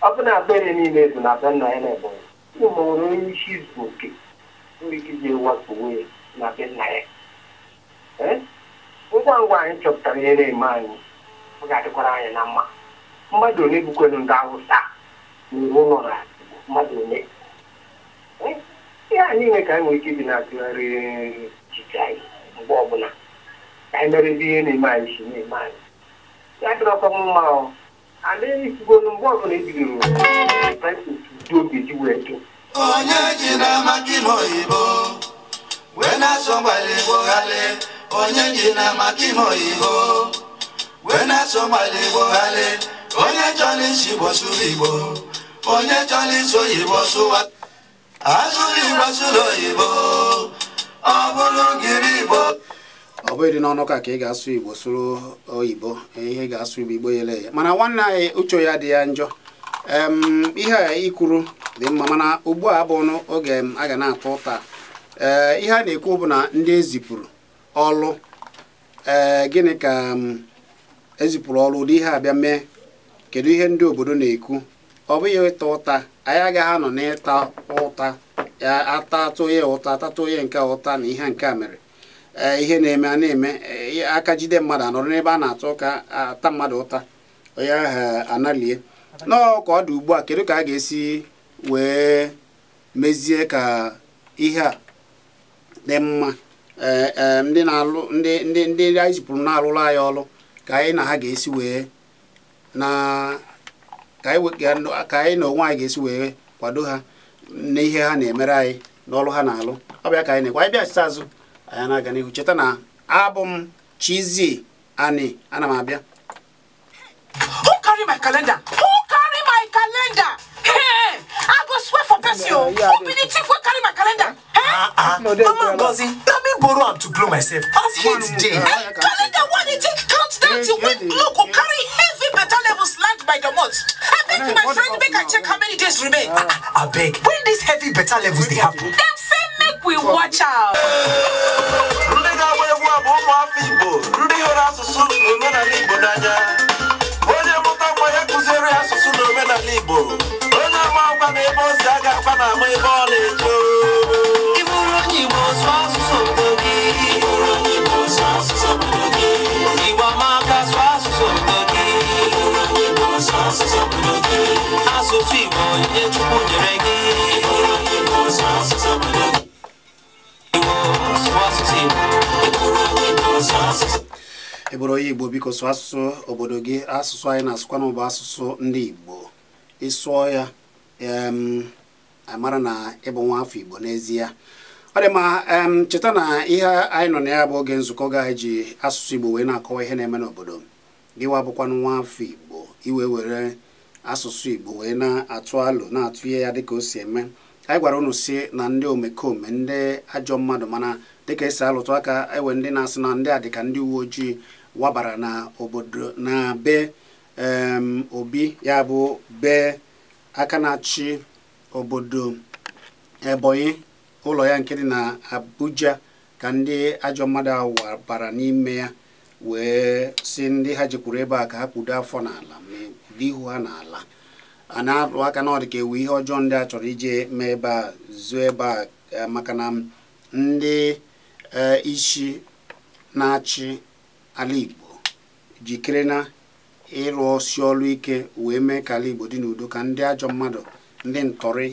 ọ bụ na abere niile bụ na be nna ya na ebonyi ụmụ nwere onye isi izu oke nwere ike iji wakpuwe na be nna ya ngwa ngwa anyị chọpụtara ihe na-eme anyị ọ ga-adịkwara anyị na mma mmadụ one bukwelu ndị awụsa na iwu nọ na mmadụ one ihe anyị niile ka anyị nwee ike ibi na-atụgharị echiche anyị mgbe ọbụla ka anyị merebe ihe na-eme anyị si na-eme anyị ya dịrọkwa mma ọ ala esigolu mgbe ọbụla ebidoro praises dị ogeji wee dị onye na amaki n'oyibo wee na-asọ gbara igbo ghale onye jiri amaki n'oyibo wee na na-eso gbara igbo ghalị onye chọrọ isi igbo sụrụ igbo onye chọrọ isi oyibo sụwa asụrụ igbo sụrụ oyibo ọ bụrụ gịrị igbo ọ bụghị dị n'ọnụ ka ka ị ga-asụ igbo sụrụ oyibo ihe ga-asụ igbo igbo yele ya mana nwanne anyị uche ya dị ya njọ ihe a ikwuru dị mma mana ugbu a bụ ọnụ oge a ga na-atụ ụta ihe a na-ekwu bụ na ndị ezipụrụ ọlụ ee gịnị ka ezipụrụ ọrụ ụdị ihe abịa mee kedu ihe ndị obodo na-ekwu ọ bụghị ịta ụta anyị agaghị anọ n'ịta ụta ata ya ụta atatụ ya nke ụta na ihe nke a mere e, ihe na-eme a na-eme e, aka jide mmadụ anọrọ n'ebe a na-atụ ụka ata mmadụ ụta onye ahụ analie nọọ ka ọ dị ugbu a kedu ka a ga-esi wee mezie ka ihe a dị mma e, ndị na-alụ ndị ndị ndị anyị zipụrụ na-alụrụ anyị ọrụ ka anyị na ha ga-esi wee na ka anyị na onwe anyị ga-esi wee kwado ha n'ihe ha na-emere anyị n'ọrụ ha na-alụ ọ ka anyị na-ekwe anyị bịachite azụ anyị na-aga n'ihu cheta na abụ m Chizzy Ani ana m abịa who carry my calendar who carry my calendar i go oh. who carry my calendar ah, ah, mama Ngozi let me borrow am to blow myself as Charity win Loco carry heavy better levels land by the month. I beg my friend make I check how many days remain. I beg, when these heavy better levels they happen? Them say make we watch out. Ndị ga-agba egwu abụ ụmụafọ Igbo, ndị hụrụ asụsụ na omenala Igbo n'anya. Onye mụta nwa ya kụziere asụsụ na omenala Igbo. Onye ama agwa na ebe ozi a ga-agba na ama ebe ọla ejo. bụrụ onye igbo biko sụọ asụsụ obodo gị asụsụ anyị na-asụkwa bụ asụsụ ndị igbo ịsụọ ya amara na ịbụ nwa afọ igbo n'ezie ọ dị mma cheta na ihe anyị nọ na ya bụ oge nzukọ gị anyị e ji asụsụ igbo wee na-akọwa ihe na-eme n'obodo gịwa bụkwanụ nwa afọ igbo iwe were asụsụ igbo wee na-atụ alụ na-atụ ihe ya dịka o si eme anyị gwara unu si na ndị omekome ndị ajọ mmadụ mana dịka esi alụtụ aka ewe ndị na-asụ na ndị a dịka ndị uwe ojii wabara na obodo na be obi ya bụ be aka na-achị obodo ebonyi ụlọ ya nke dị na abuja ka ndị ajọ mmadụ ahụ wabara n'ime ya wee si ndị ha jekwuru ebe a ka ha kpudo afọ n'ala ma ihu ha n'ala a na-alụ aka na ọ dị ka ewu ihe ọjọọ ndị a chọrọ ije mee ebe a zuo ebe a eh, maka ndị eh, isi na-achị ala Igbo jikere na ịrụ ọsị ọlụ ike wee mee ka ala Igbo dị n'udo ka ndị ajọ mmadụ ndị ntọrị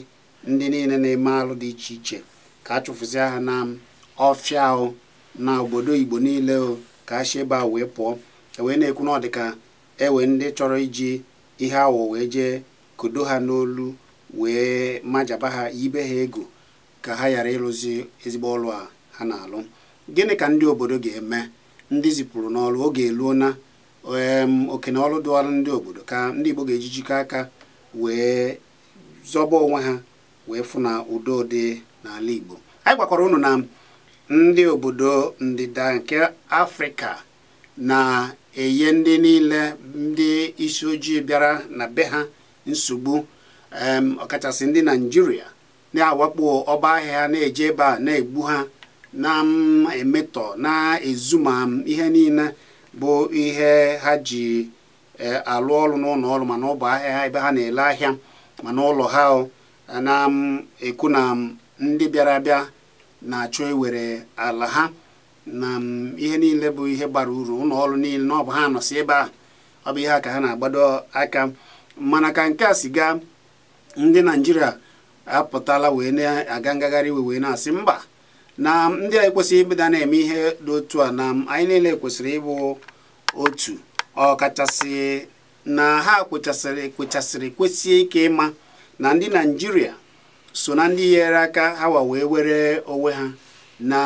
ndị niile na-eme alụ dị iche iche ka a chụfụzịa ha na ọfịa ahụ na obodo Igbo niile ka a si ebe a wee pụọ e wee na-ekwu na ọ dị ka ewe ndị chọrọ iji ihe awọ wee jee kodo ha n'olu wee majaba ha yibe ha ego ka ha ghara ịrụzi ezigbo ọlụ a ha na-alụ gịnị ka ndị obodo ga-eme ndị zipụrụ n'ọrụ oge eluo na okene ọrụ dụọrụ ndị obodo ka ndị Igbo ga ejijikọ aka wee zọba onwe ha wee fụ na udo dị n'ala Igbo anyị gwakwara ụnụ na ndị obodo ndịda nke Afrịka na-enye ndị niile ndị isi ojii bịara na be ha nsogbu ọkachasị ndị naijiria na-awakpo ọba ahịa na-eje ebe a na-egbu ha na-emetọ m na-ezu ma ihe niile bụ ihe ha ji e, alụ ọrụ n'ụlọ ọrụ mana ọ ahịa ebe ha na-ele ahịa mana ụlọ ha na-ekwu na ndị bịara abịa na-achọ ewere ala ha na ihe niile bụ ihe gbara uru ụlọ ọrụ niile na ha nọsị ebe a ọ bụ ihe a ka ha na-agbado aka mana ka nke a si gaa ndị naijiria apụtala wee na-aga ngagharị iwe wee na-asị mba na ndị anyị kwesịrị ịbụda na-eme ihe dị otu a na anyị niile kwesịrị ịbụ otu ọkachasị na ha kwechasịrị kwechasịrị kwesị ike ịma na ndị naijiria so na ndị nyere aka ha wa wee were onwe ha na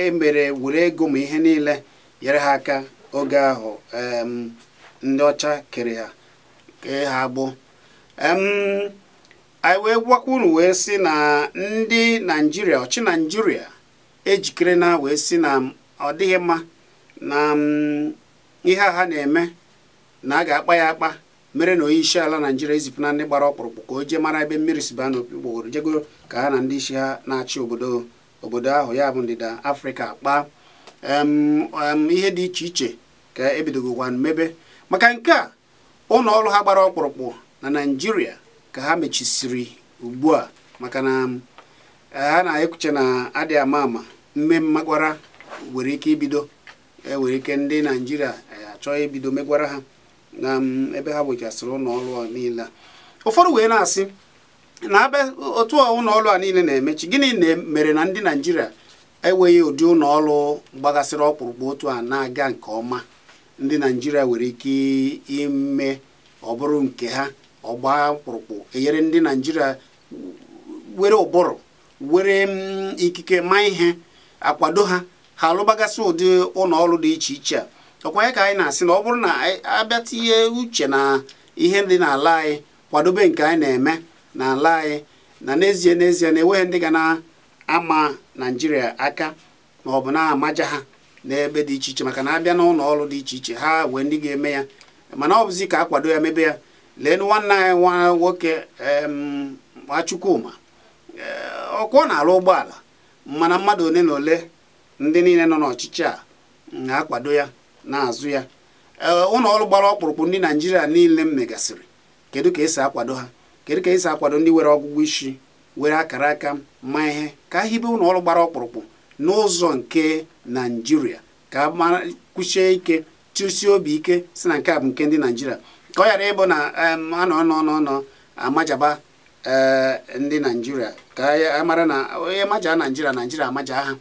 emere were ego ma ihe niile nyere ha aka oge ahụ ndị ọcha kere ha ha anyị wee gwakwa unu wee sị na ndị naijiria ọchị naijiria ejikere na wee sị na ọ dịghị mma na ihe a ha na-eme na a ga-akpa ya akpa mere na onye isi ala naijiria ezipụ na ndị gbara ọkpụrụkpụ ka o jee mara ebe mmiri si baa n'okpukpogoro jego ka ha na ndị isi ha na-achị obodo obodo ahụ ya bụ ndịda afrịka kpaa ihe dị iche iche ka ebidogokwa mmebe maka nke a ụlọ ọrụ ha gbara ọkpụrụkpụ na naijiria ka ha mechisiri ugbu a maka na um, ha na-ekwuche na adị ama ama mme mmegwara nwere ike ibido e nwere ike ndị naijiria e, achọ ibido megwara ha na um, ebe ha wechasịrị ụlọ ọrụ niile ụfọdụ wee na-asị na abịa otu ụlọ a niile na-emechi gịnị mere na ndị naijiria enweghị ụdị ụlọ gbagasịrị ọkpụrụkpụ otu a na-aga nke ọma ndị naijiria nwere ike ime ọ bụrụ nke ha ọgba mkpụrụkpụ enyere ndị naijiria were ụbụrụ were mm, ikike ma ihe akwado ha ha alụbagasị ụdị ụlọọrụ dị iche iche a ọkwa ya ka anyị na-asị na ọ bụrụ na abịatinye uche na ihe dị n'ala anyị kwadobe nke anyị na-eme n'ala anyị na n'ezie n'ezie na enweghị ndị ga na-ama naijiria aka ma ọ bụ na-amaja ha n'ebe dị iche iche maka na abịa n'ụlọ ọrụ dị iche iche ha wee ndị ga-eme ya mana ọ bụzi ka akwado ya mebe ya leenụ nwanne anyị nwa nwoke Chukwuma eh, ọkwa ọ na-arụ ụgbọala mana mmadụ ole na ole ndị niile nọ n'ọchịchị a na-akwado ya na-azụ ya eh, ụlọ ọrụ gbara ọkpụrụkpụ ndị naijiria niile m megasịrị kedu ka esi akwado ha kedu ka esi akwado ndị nwere ọgwụgwụ isi were akara aka ma ihe ka a hibe ụlọ ọrụ gbara ọkpụrụkpụ n'ụzọ nke naijiria ka a kwụchie ike chụsie obi ike si na nke a bụ nke ndị naijiria ka ọ ghara ịbụ na anọ nọ n'ọnọ amajaba eh, ndị naijiria ka a mara na onye maja naijiria naijiria amaja ha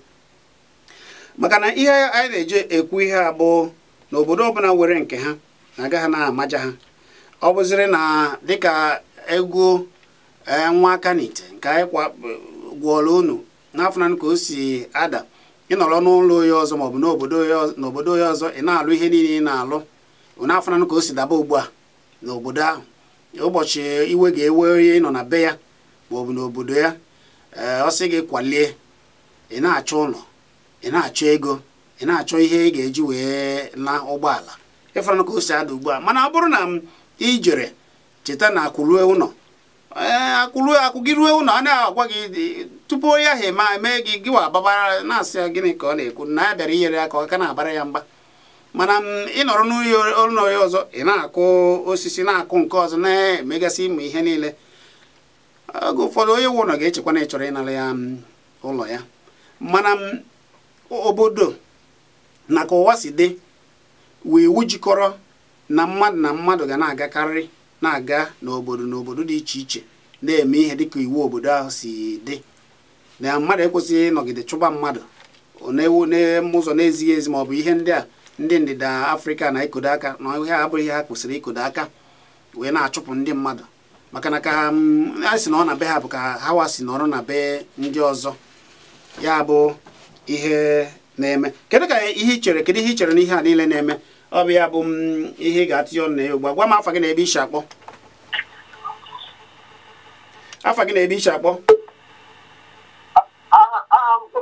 maka na ihe anyị na-eji ekwu ihe a bụ na obodo ọbụla nwere nke ha na ha na-amaja ha ọ bụziri na dịka egwu eh, nwa aka n'ite nke anyị gwọọla unu n'afọ na ka o si ada ịnọrọ n'ụlọ onye ọzọ maọbụ n'obodo onye ọzọ ị na-alụ ihe niile ị na-alụ afọ na ka o si daba ugbu a n'obodo ahụ ụbọchị iwe ga-ewe onye nọ na be ya maọbụ n'obodo ya eh, ọ gị kwalie ị na-achọ ụlọ ị na-achọ ego ị na-achọ ihe ị ga-eji wee na ụgbọala ịfụranụ ka o si ada ugbu a mana ọ bụrụ na m ijere cheta na akwụlue ụlọ eh, akwụlue akwụ gị ruo ụlọ a na-agwa gị tupu onye ahụ mee gị gịwa ababara na-asị ya gịnị ka ọ na-ekwu na ya bịara inyere aka ọ ka na-abara ya mgba mana ịnọrọ n'ụlọ ya ọzọ ị na-akụ osisi na-akụ nke ọzọ na-emegasị ịmụ ihe niile oge ụfọdụ onye wụ ụlọ ga-echekwa na ịchọrọ ịnara ya mm, ụlọ ya mana obodo na ka ụwa si dị wee wujikọrọ jikọrọ na mmadụ na mmadụ ga na-agakarị na-aga n'obodo n'obodo dị iche iche na-eme ihe dịka iwu obodo ahụ si dị na mmadụ ekwesịghị ịnọgide chụba mmadụ na-ewu n'ụzọ na-ezighị ezi ma ọ bụ ihe ndị a ndị ndịda afrịka na ikodo aka na ihe abụghị ihe ha kwụsịrị ikodo aka wee na-achụpụ ndị mmadụ maka na ka ha si na ọ na be ha bụ ka ha si nọrọ na be ndị ọzọ ya bụ ihe na-eme kedu ka ihe ichere chere kedu ihe ị chere na ihe a niile na-eme ọ bụ ya bụ ihe ị ga-atụnye ọnụ na ya ugbu a gwa m afa gị na ebe ishi akpọ afa gị na ebe ishi akpọ ah, ah, um,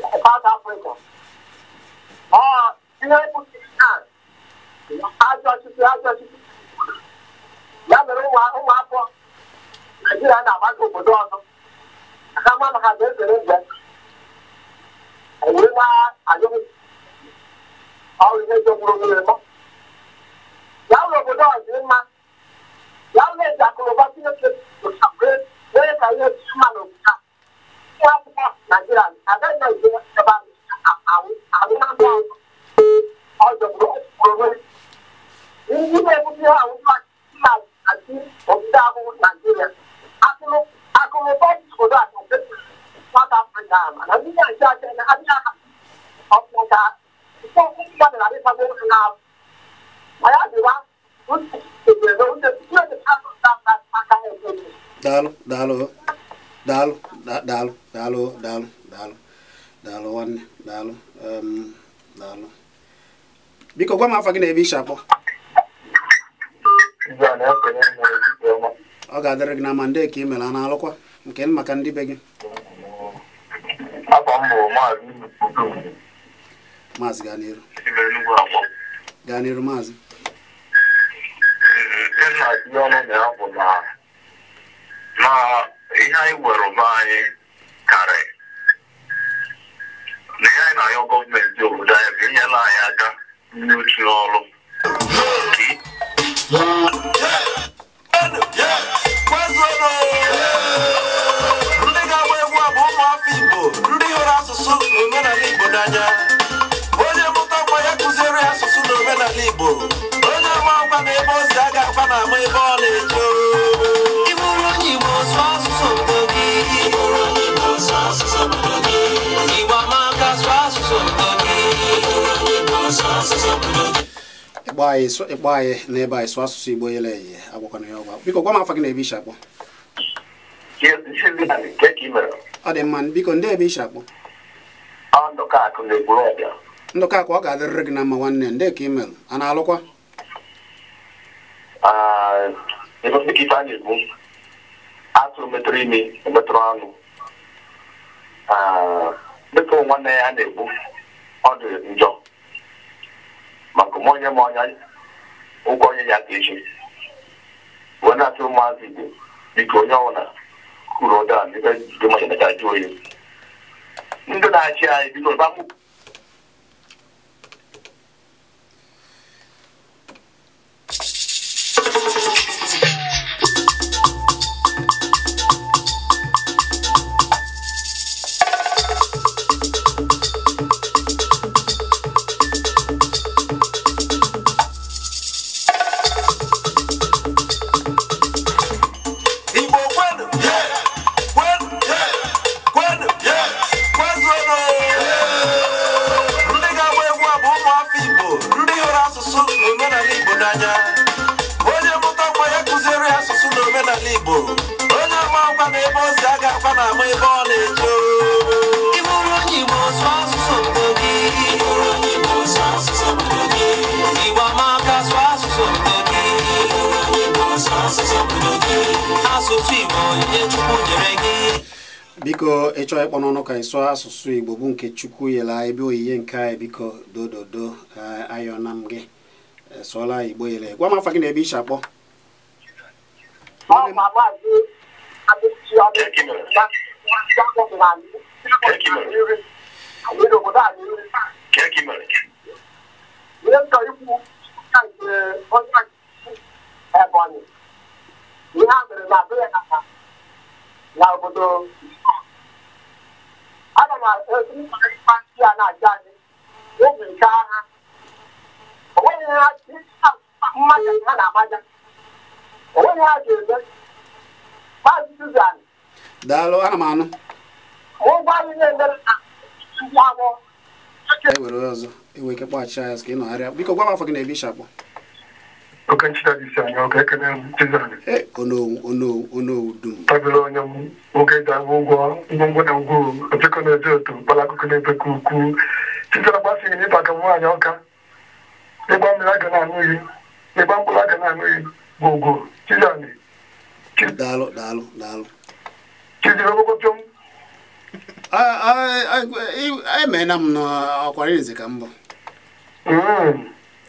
South Africa ọ pụtara na ajọ ọchịchị ajọ ọchịchị ya mere ụmụafọ Naijiria na-agbaga obodo ọzọ aka ma maka ga ezere mgbe ewee na ajụghị ọ ihe jọgburu nwere mọ ya ụlọ obodo ọzọ mma ya ụlọ eji akụrụba Chineke nwere ka ihe a mma n'obodo a Dalo, dalo. daalụ daalụ daalụ daalụ daalụ daalụ nwanne daalụ ehm, daalụ biko gwa m afa gị na ebe ishi akpọ ọ ga-adịrị gị na ma ndị ka ị mere a na-alụkwa nke maka ndị be gị maazị gaa n'iru gaa n'iru maazị na ihe anyị nwere ụba anyị karị na ihe anyị na-ayọ gọọmenti obodo anyị bụ inyela anyị aka n'uchu ndị ga-agba egwu bụ ụmụafọ Igbo ndị hụrụ asụsụ na omenala Igbo n'anya onye mụtakwa ya asụsụ na omenala Igbo onye ama na ebe a ga na ama ebe ọ ịkpọ anyị ịkpọ anyị n'ebe anyị sụọ asụsụ Igbo yele eye agwakwana ya ọgwa biko gwa m afọ gị na ebe isi akpọ ọ dị mma biko ndị ebe isi akpọ ndụka akụ ọ ga-adịrịrị gị na mma nwanne ndị ka imel a e, na-alụkwa atụrụ metụrụ imi metụrụ ọnụ dịka nwanne ya na-egbu ọ dị njọ maka onye ma ọnya ụgwọ onye ya ka echi wee na-atụ ụmụazị igbo dịka onye ọbụla kwuru ụdara n'ibe dị maka jụ oyi ndị na-achị anyị bido ịchọọ ịkpọ n'ọnụ ka anyị asụsụ Igbo bụ nke Chukwu yela ebe oyiye nke anyị biko dododo ayọna na gị sụọla Igbo yela gwa m afa gị na ebe iche akpọ ihe a mere na na obodo ana m aụaị ya na-aja adị oge nke agha onweghị ha mmaja ha na-amaja onweghị ha ga-eme maazị Suzan daalụ ana m anụ ụgwọ anyị na-emere ndị agbọ ewere ọzọ ewe ike kpọghachi ya ka ị nọgharịa biko gwa m afọ gị na-ebi ishakpọ tabiri onye m nwoke ga-ahụ ụgwọ ngwongwo na ngwuru opekọ na-eje otu mkpara akụkụ na-ebekọ ukwu chitere gbasighị n'ịba ka nwaanyị ọka ịgba mmiri aga na-anụ iyi ịgba mkpụrụ aga na-anụ iyi bụ ugwu chizani chiziri ogbogoto m emeela m n'ọkwara izi ka mbụ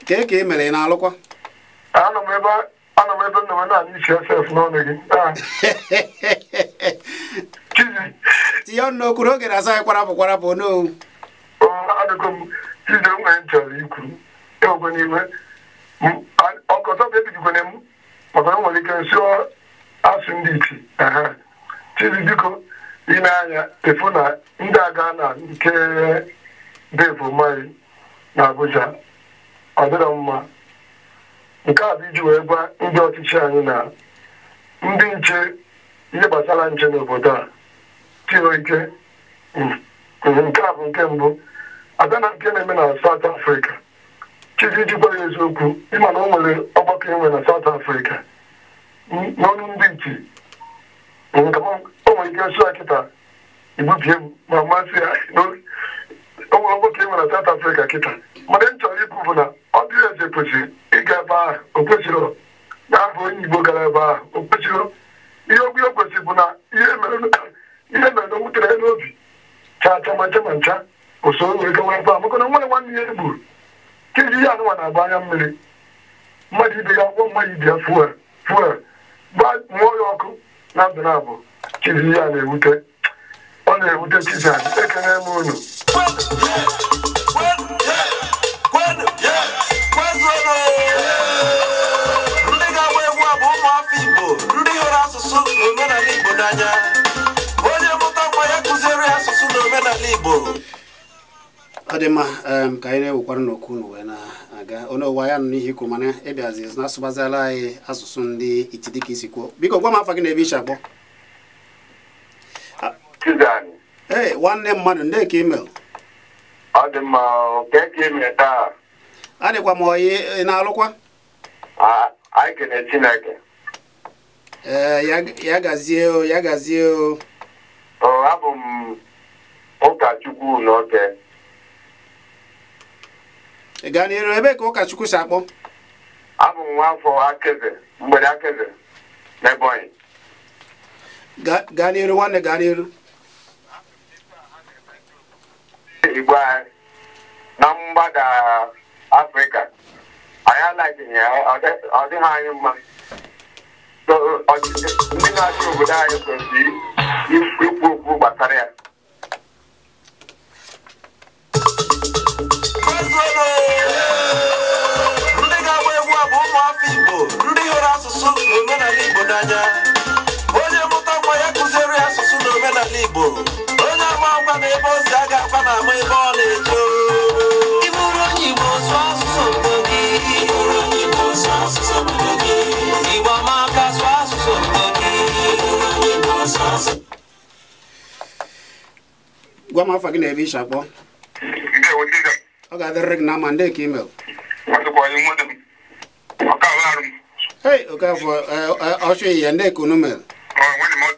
ka e ka e mere ị na-alụkwa ana m ebe nna m naanị isi sf n'ọnụ gị tinye ọnụ n'okwu oge na-asa anyị kwarapụ kwarapụ n'owu adịgo m chizi m nwere chọrọ ikwu ịwekwe n'ime ọkọtọ bụ ebigikwana m maka na nwere ike nsụọ asụ ndị iti chizi biko ine anya efu na ndị aga na nke bevo mai na Abuja ọ dịrọ mma nke a bụ iji wee gwa ndị ọchịchị anyị na ndị nche ihe gbasara nche n'obodo a tio ike hmm. hmm, nke a bụ nke mbụ abịa na nke na-eme na South Africa gwa ya eziokwu ịma na o nwere ọgbakọ enwe na South afrịka hmm, n'ọnụ ndị iti o nwere ike sụa kịta ibubie m ma masị ya o nwere nwoke nwere South Africa kịta mana m chọrọ ikwu bụ na ọ dịrị eze kwesịrị ịga ebe ahụ o kwesịrị na abụ onye Igbo gara ebe ahụ o kwesịrị ihe o kwesịrị bụ na ihe mere na nwutere ya n'obi chaa cha ncha ma ncha usoro were gawa ebe ahụ maka na nwere nwanne ya egburu keji ihe anụnwa na-agba anya mmiri mmadụ ibe ya akwụkwọ mmadụ ibe ya fuel fuel mụọ ya ọkụ na ndụ na abụ chizi na-ewute ọ na-ewute chizi anyị ekene m unu ọ dị ka anyị na-ewekwara n'okwu unu wee na-aga onye ụwa ya nụ n'ihe ikwu mana ịbịazi e na-asụbazila anyị asụsụ ndị iti dịka isi kwuo biko gwa m afa gị na ebe iche akpọ ee nwanne mmadụ nde ka imel ọ dị mma ka e mere taa adịkwa m oyi ị na-alụkwa anyị kene Chineke ee eh, ya gazie o ya gazie o o abụ m ụkọchukwu n'oke ị gaa n'iru ebe ka ụkọchukwu si akpọ abụ m nwafọ akeze mgbede akeze n'Ebonyi gaa n'iru nwanne gaa n'iru igbo anyị na mgbada afrịka anyị alaghịghị ya ọ dịghị anyị mma ndị na-achị obodo anyị kwesịrị ikwu okwu gbasara ya ndị ga-agba egwu a bụ ụmụafọ igbo ndị hụrụ asụsụ na omenala igbo n'anya onye mụta nwa ya kụziere asụsụ ife n'ala igbo onye ama ọgwa na ebe o si aga akwa na ama ebe ọ na-eje gwa m afọ gị na ebe isi akpọ ọ ga-adịrịrị gị na ndị ka imel Hey, okay, for uh, uh, I'll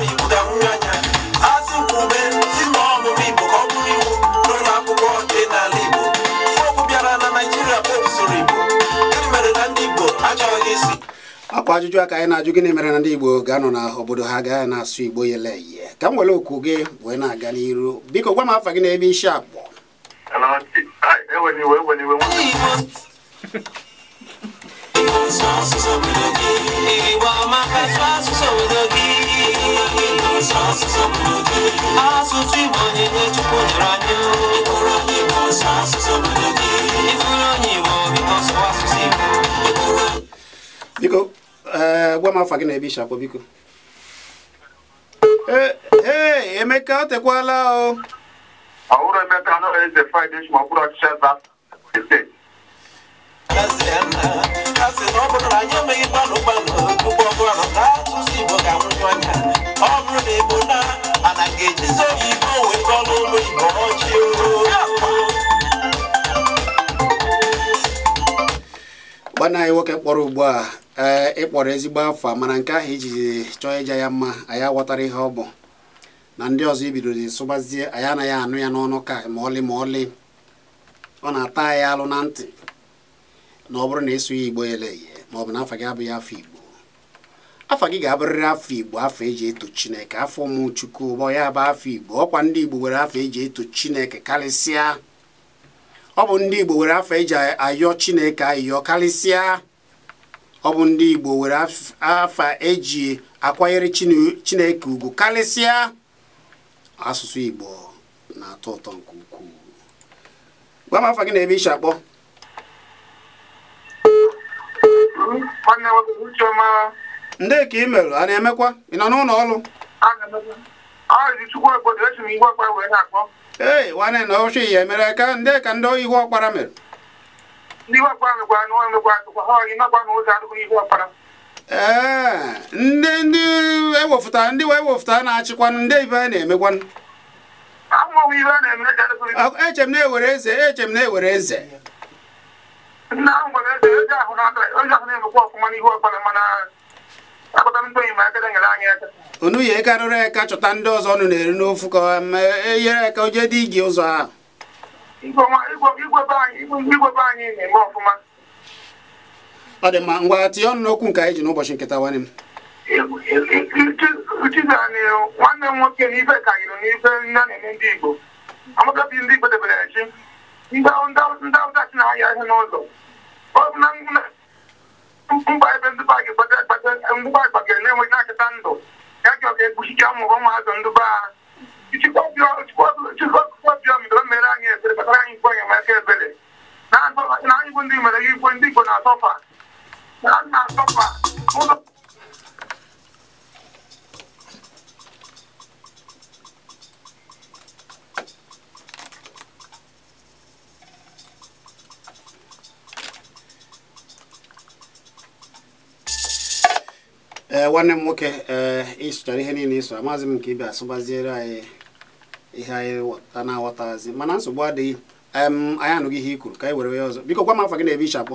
I'm a ọkwa ajụjụ aka anyị na-ajụ gịnị mere na ndị Igbo ga-anọ na obodo ha gaa na-asụ Igbo yeleyi ka m were okwu gị wee na-aga n'iru biko gwa m afa gị n'ebe isi akpọ biko ee eh, gwa m afa gị na ebe isi akpọ biko ee eh, eh, emeka o tekwala o ọhụrụ emeka anọghị eze fraịde ma ọ bụrụ na ebo na ana ga ụlọ igbo gbanaa anyị nwoke kpọrọ ugbu a ee eh, ịkpọrọ ezigbo afọ mana nke ahụ iji chọọ ịja ya mma anyị aghọtara ihe ọ bụ na ndị ọzọ ibidoro sụbazie anyị anaghị anụ ya n'ọnụ ka ma ọlị ma ọlị ọ na-ata anyị alụ na ntị na ọ bụrụ na ịsụ ya igbo eleghị ma ọ bụ na afọ gị abụghị afọ igbo afọ gị ga-abụrịrị afọ igbo afọ eji eto chineke afọ ụmụ ụbọ ya bụ afọ igbo ọkwa ndị igbo nwere afọ eji eto chineke karịsịa ọ bụ ndị Igbo were afọ eji ayọ Chineke ayọ karịsịa ọ bụ ndị Igbo were afọ eji akwanyere Chineke ugwu karịsịa asụsụ Igbo na-atọ ụtọ nke ukwuu gwa m afọ gị na ebe isi akpọ ndị ka ị merụ a na-emekwa ị nọ n'ụlọ ọrụ ee nwanne na ochi ya emere ka ndị ka ndị ihu ọkpara mere eh, ee ndị ndị ewefụta ndị wee wefụta na-achịkwanụ ndị ibe a na-emekwanụ eche m na-ewere eze eche m na-ewere eze ahụ ahụ na-emekwa ọfụma n'ihu ọkpara mana akpata ndị oyi ma aka nyere anyị unu ya ekarịrị eka chọta ndị ọzọ unu na-eri n'ofu ka eyere ka oje dị igi ụzọ ahụ ọ dị mma ngwa tinye ọnụ n'okwu nke anyị ji n'ụbọchị nketa nwanne m nwanne m nwoke n'ife karịrị n'ife nne na-eme ndị Igbo amaka bi ndị Igbo debere chi ndị Awụsa chi na-ahịa ihe n'ụzọ mba ebe ndị ba gị gbagara na-enweghị na-achịta ndụ a ga-ekpuchicha ụmụ ụmụazụ ndị be ha chikọbịọm doo mere anyị ebere kpatara anyị ikwe enyemaka ebere na anyị bụ ndị mere gị igwe ndị Igbo na-asọfa ee eh, nwanne m nwoke eh, ịsụchara ihe niile ịsụ amazi m nke ibe asụbaziere anyị ihe anyị na-aghọtazi mana nsogbu adịghị anyị anụghị ihe i ka anyị were ya ọzọ biko gwa m afọ gị na-ebe ichapụ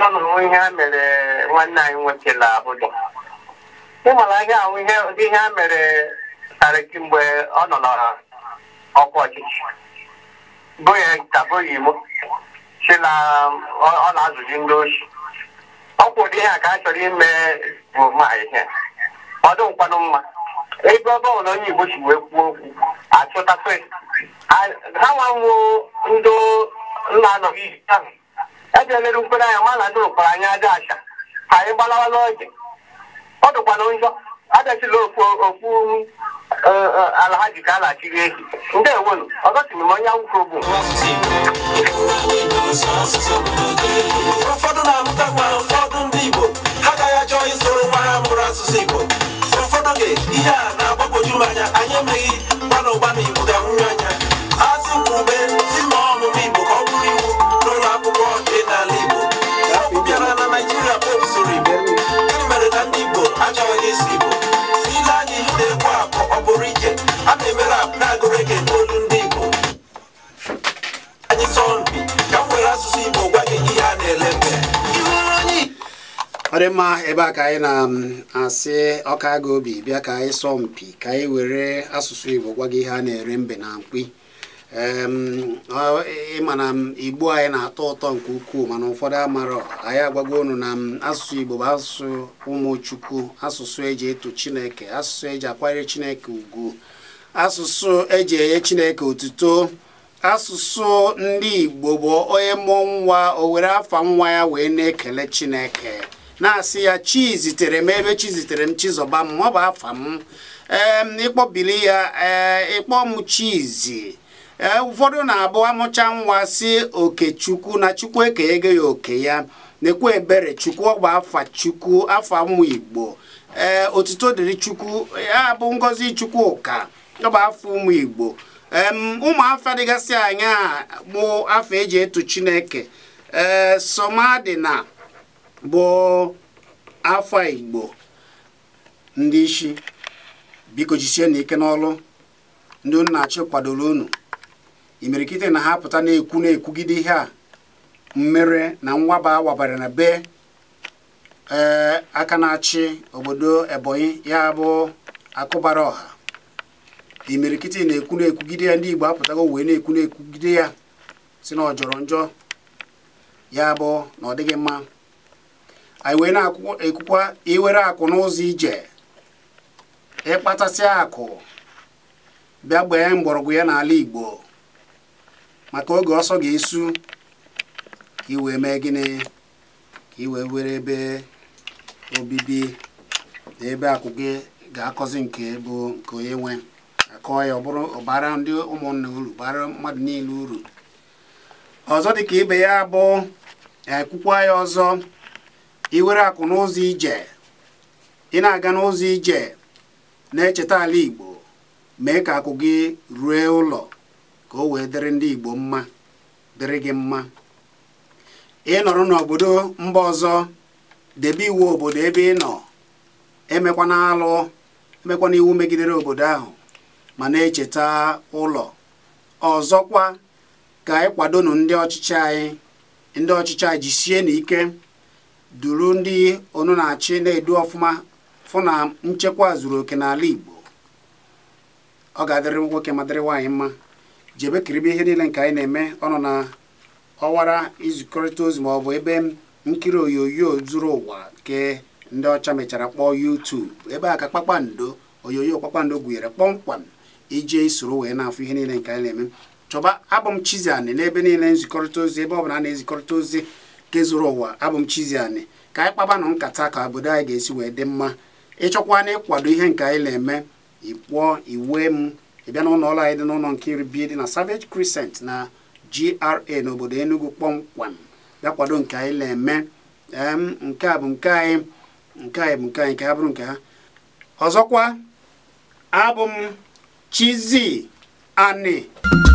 anụrụ ihe ha mere nwanne anyị ị ihe a mere karị kemgbe ọ nọ ọchịchị ya tabụghị Igbo na ọ na-azụzi ndị ochi ọ ihe a ka a chọrọ ime bụ ma ihe ọ mma ebe ọ onye wee okwu achọta ha nwa ndị nna anọghị ahụ ejere mere mkpere anya ma na ndị ụkpara anya aja acha ka anyị gbalawa n'oge ọ dụkwana njọ adachila okpu ala ha ji ka a na-achiri ehi ndị ewelu m onye nwụke bụ ndị Igbo ha naijiria bụ usoro igbo e mere na ndị igbo achọghị oh, oh, isi igbo ile anyị na-ekwu akụ ọ bụrụ ije a na-eme rap na-agụrụ gị olu ndị igbo anyị sọmpi ka m asụsụ igbo gwa gị ihe a na-ele mbe ọ dị mma ebe a ka anyị na-asị um, ọka obi bịa ka anyị sọ mpi ka anyị were asụsụ igbo gwa gị ihe a na-ere mbe na mkpi ịma na igbo anyị na-atọ ụtọ nke ukwuu mana ụfọdụ amarọ anyị agwago ụnụ na asụsụ igbo bụ asụsụ ụmụchukwu asụsụ eji eto chineke asụsụ eji akwanyere chineke ugwu asụsụ eji enye chineke otuto asụsụ ndị igbo bụ onye mụọ nwa o were afa nwa ya wee na-ekele chineke na-asị ya chi zitere m ebe chi zitere m chizọba m ọ bụ afa m ee ịkpọbili ya ee ịkpọ m chizi ee eh, ụfọdụ na-abụ amụcha nwa si oke okechukwu na chukwu ekenyego ya oke ya na-ekwu ebere chukwu ọgba afa chukwu afa mmụ igbo ee eh, otuto dịrị chukwu ya eh, bụ ngozi chukwu ụka ọgba afa ụmụ igbo ụmụafa dịgasị anya bụ afa eji etu chineke ee somadina bụ afa igbo ndị isi biko jisie na ike n'ọlụ ndị unu na kwadoro unu imirikiti na ha pụta na-ekwu na-ekwugide ihe a mmere na nwaba wabara na be ee eh, aka na-achị obodo ebonyi ya bụ akụbara ọha imirikiti na-ekwu na-ekwugide ya ndị igbo apụtago wee na-ekwu na-ekwugide ya si na ọ njọ ya bụ na ọ dịghị mma anyị wee na-ekwukwa iwere akụ n'ụzọ ije ịkpatasi akụ bịa gbee mgbọrọgwụ ya n'ala igbo maka oge ọsọ ga-esu ka iwee mee gịnị ka iwee were ebe obibi na ebe akụ gị ga-akọzi nke bụ nke onye nwe akọọ ya ọ bụrụ ọbara ndị ụmụnna uru bara mmadụ niile uru ọzọ dịka ibe ya bụ ekwukwa ya ọzọ iwere akụ n'ụzọ ije ị na-aga n'ụzọ ije na-echeta ala Igbo mee ka akụ gị rue ụlọ ka o wee dịrị ndị Igbo mma dịrị gị mma ị nọrọ n'obodo mba ọzọ debe iwu obodo ebe ị nọ emekwa n'alụ, emekwa iwu megidere obodo ahụ ma na-echeta ụlọ ọzọkwa ka anyị kwadonu ndị ọchịchị anyị ndị ọchịchị anyị jisie n'ike duru ndị onu na-achị na-edu ọfụma fụ na nchekwa zuru oke n'ala Igbo ọ ga-adịrị nwoke ma dịrị nwaanyị mma jebe kiribe ihe niile nke anyị na-eme ọ nọ na ọwara izikọrịta ozi ma ọ bụ ebe nkiri onyonyo zuru ụwa nke ndị ọcha mechara kpọọ YouTube ebe a ka kpakpando onyonyo kpakpando gụnyere kpọmkwam ije soro wee na-afụ ihe niile nke anyị na-eme chọba abụm chiziani Ani n'ebe niile nzikọrịta ozi ebe ọ bụla a na-ezikọrịta ozi nke zuru ụwa abụm chiziani ka anyị kpabanụ nkata ka obodo anyị ga-esi wee dị mma ịchọkwa na ịkwado ihe nke anyị na-eme ị iwe m ị bịa ụlọ ọrụ anyị dị n'ụlọ nkiri bi dị na Savage Crescent na GRA n'obodo Enugu kpọmkwem bịa kwado nke anyị na-eme nke a bụ nke anyị nke anyị bụ nke anyị ha bụrụ nke ha ọzọkwa abụ m chizi Ani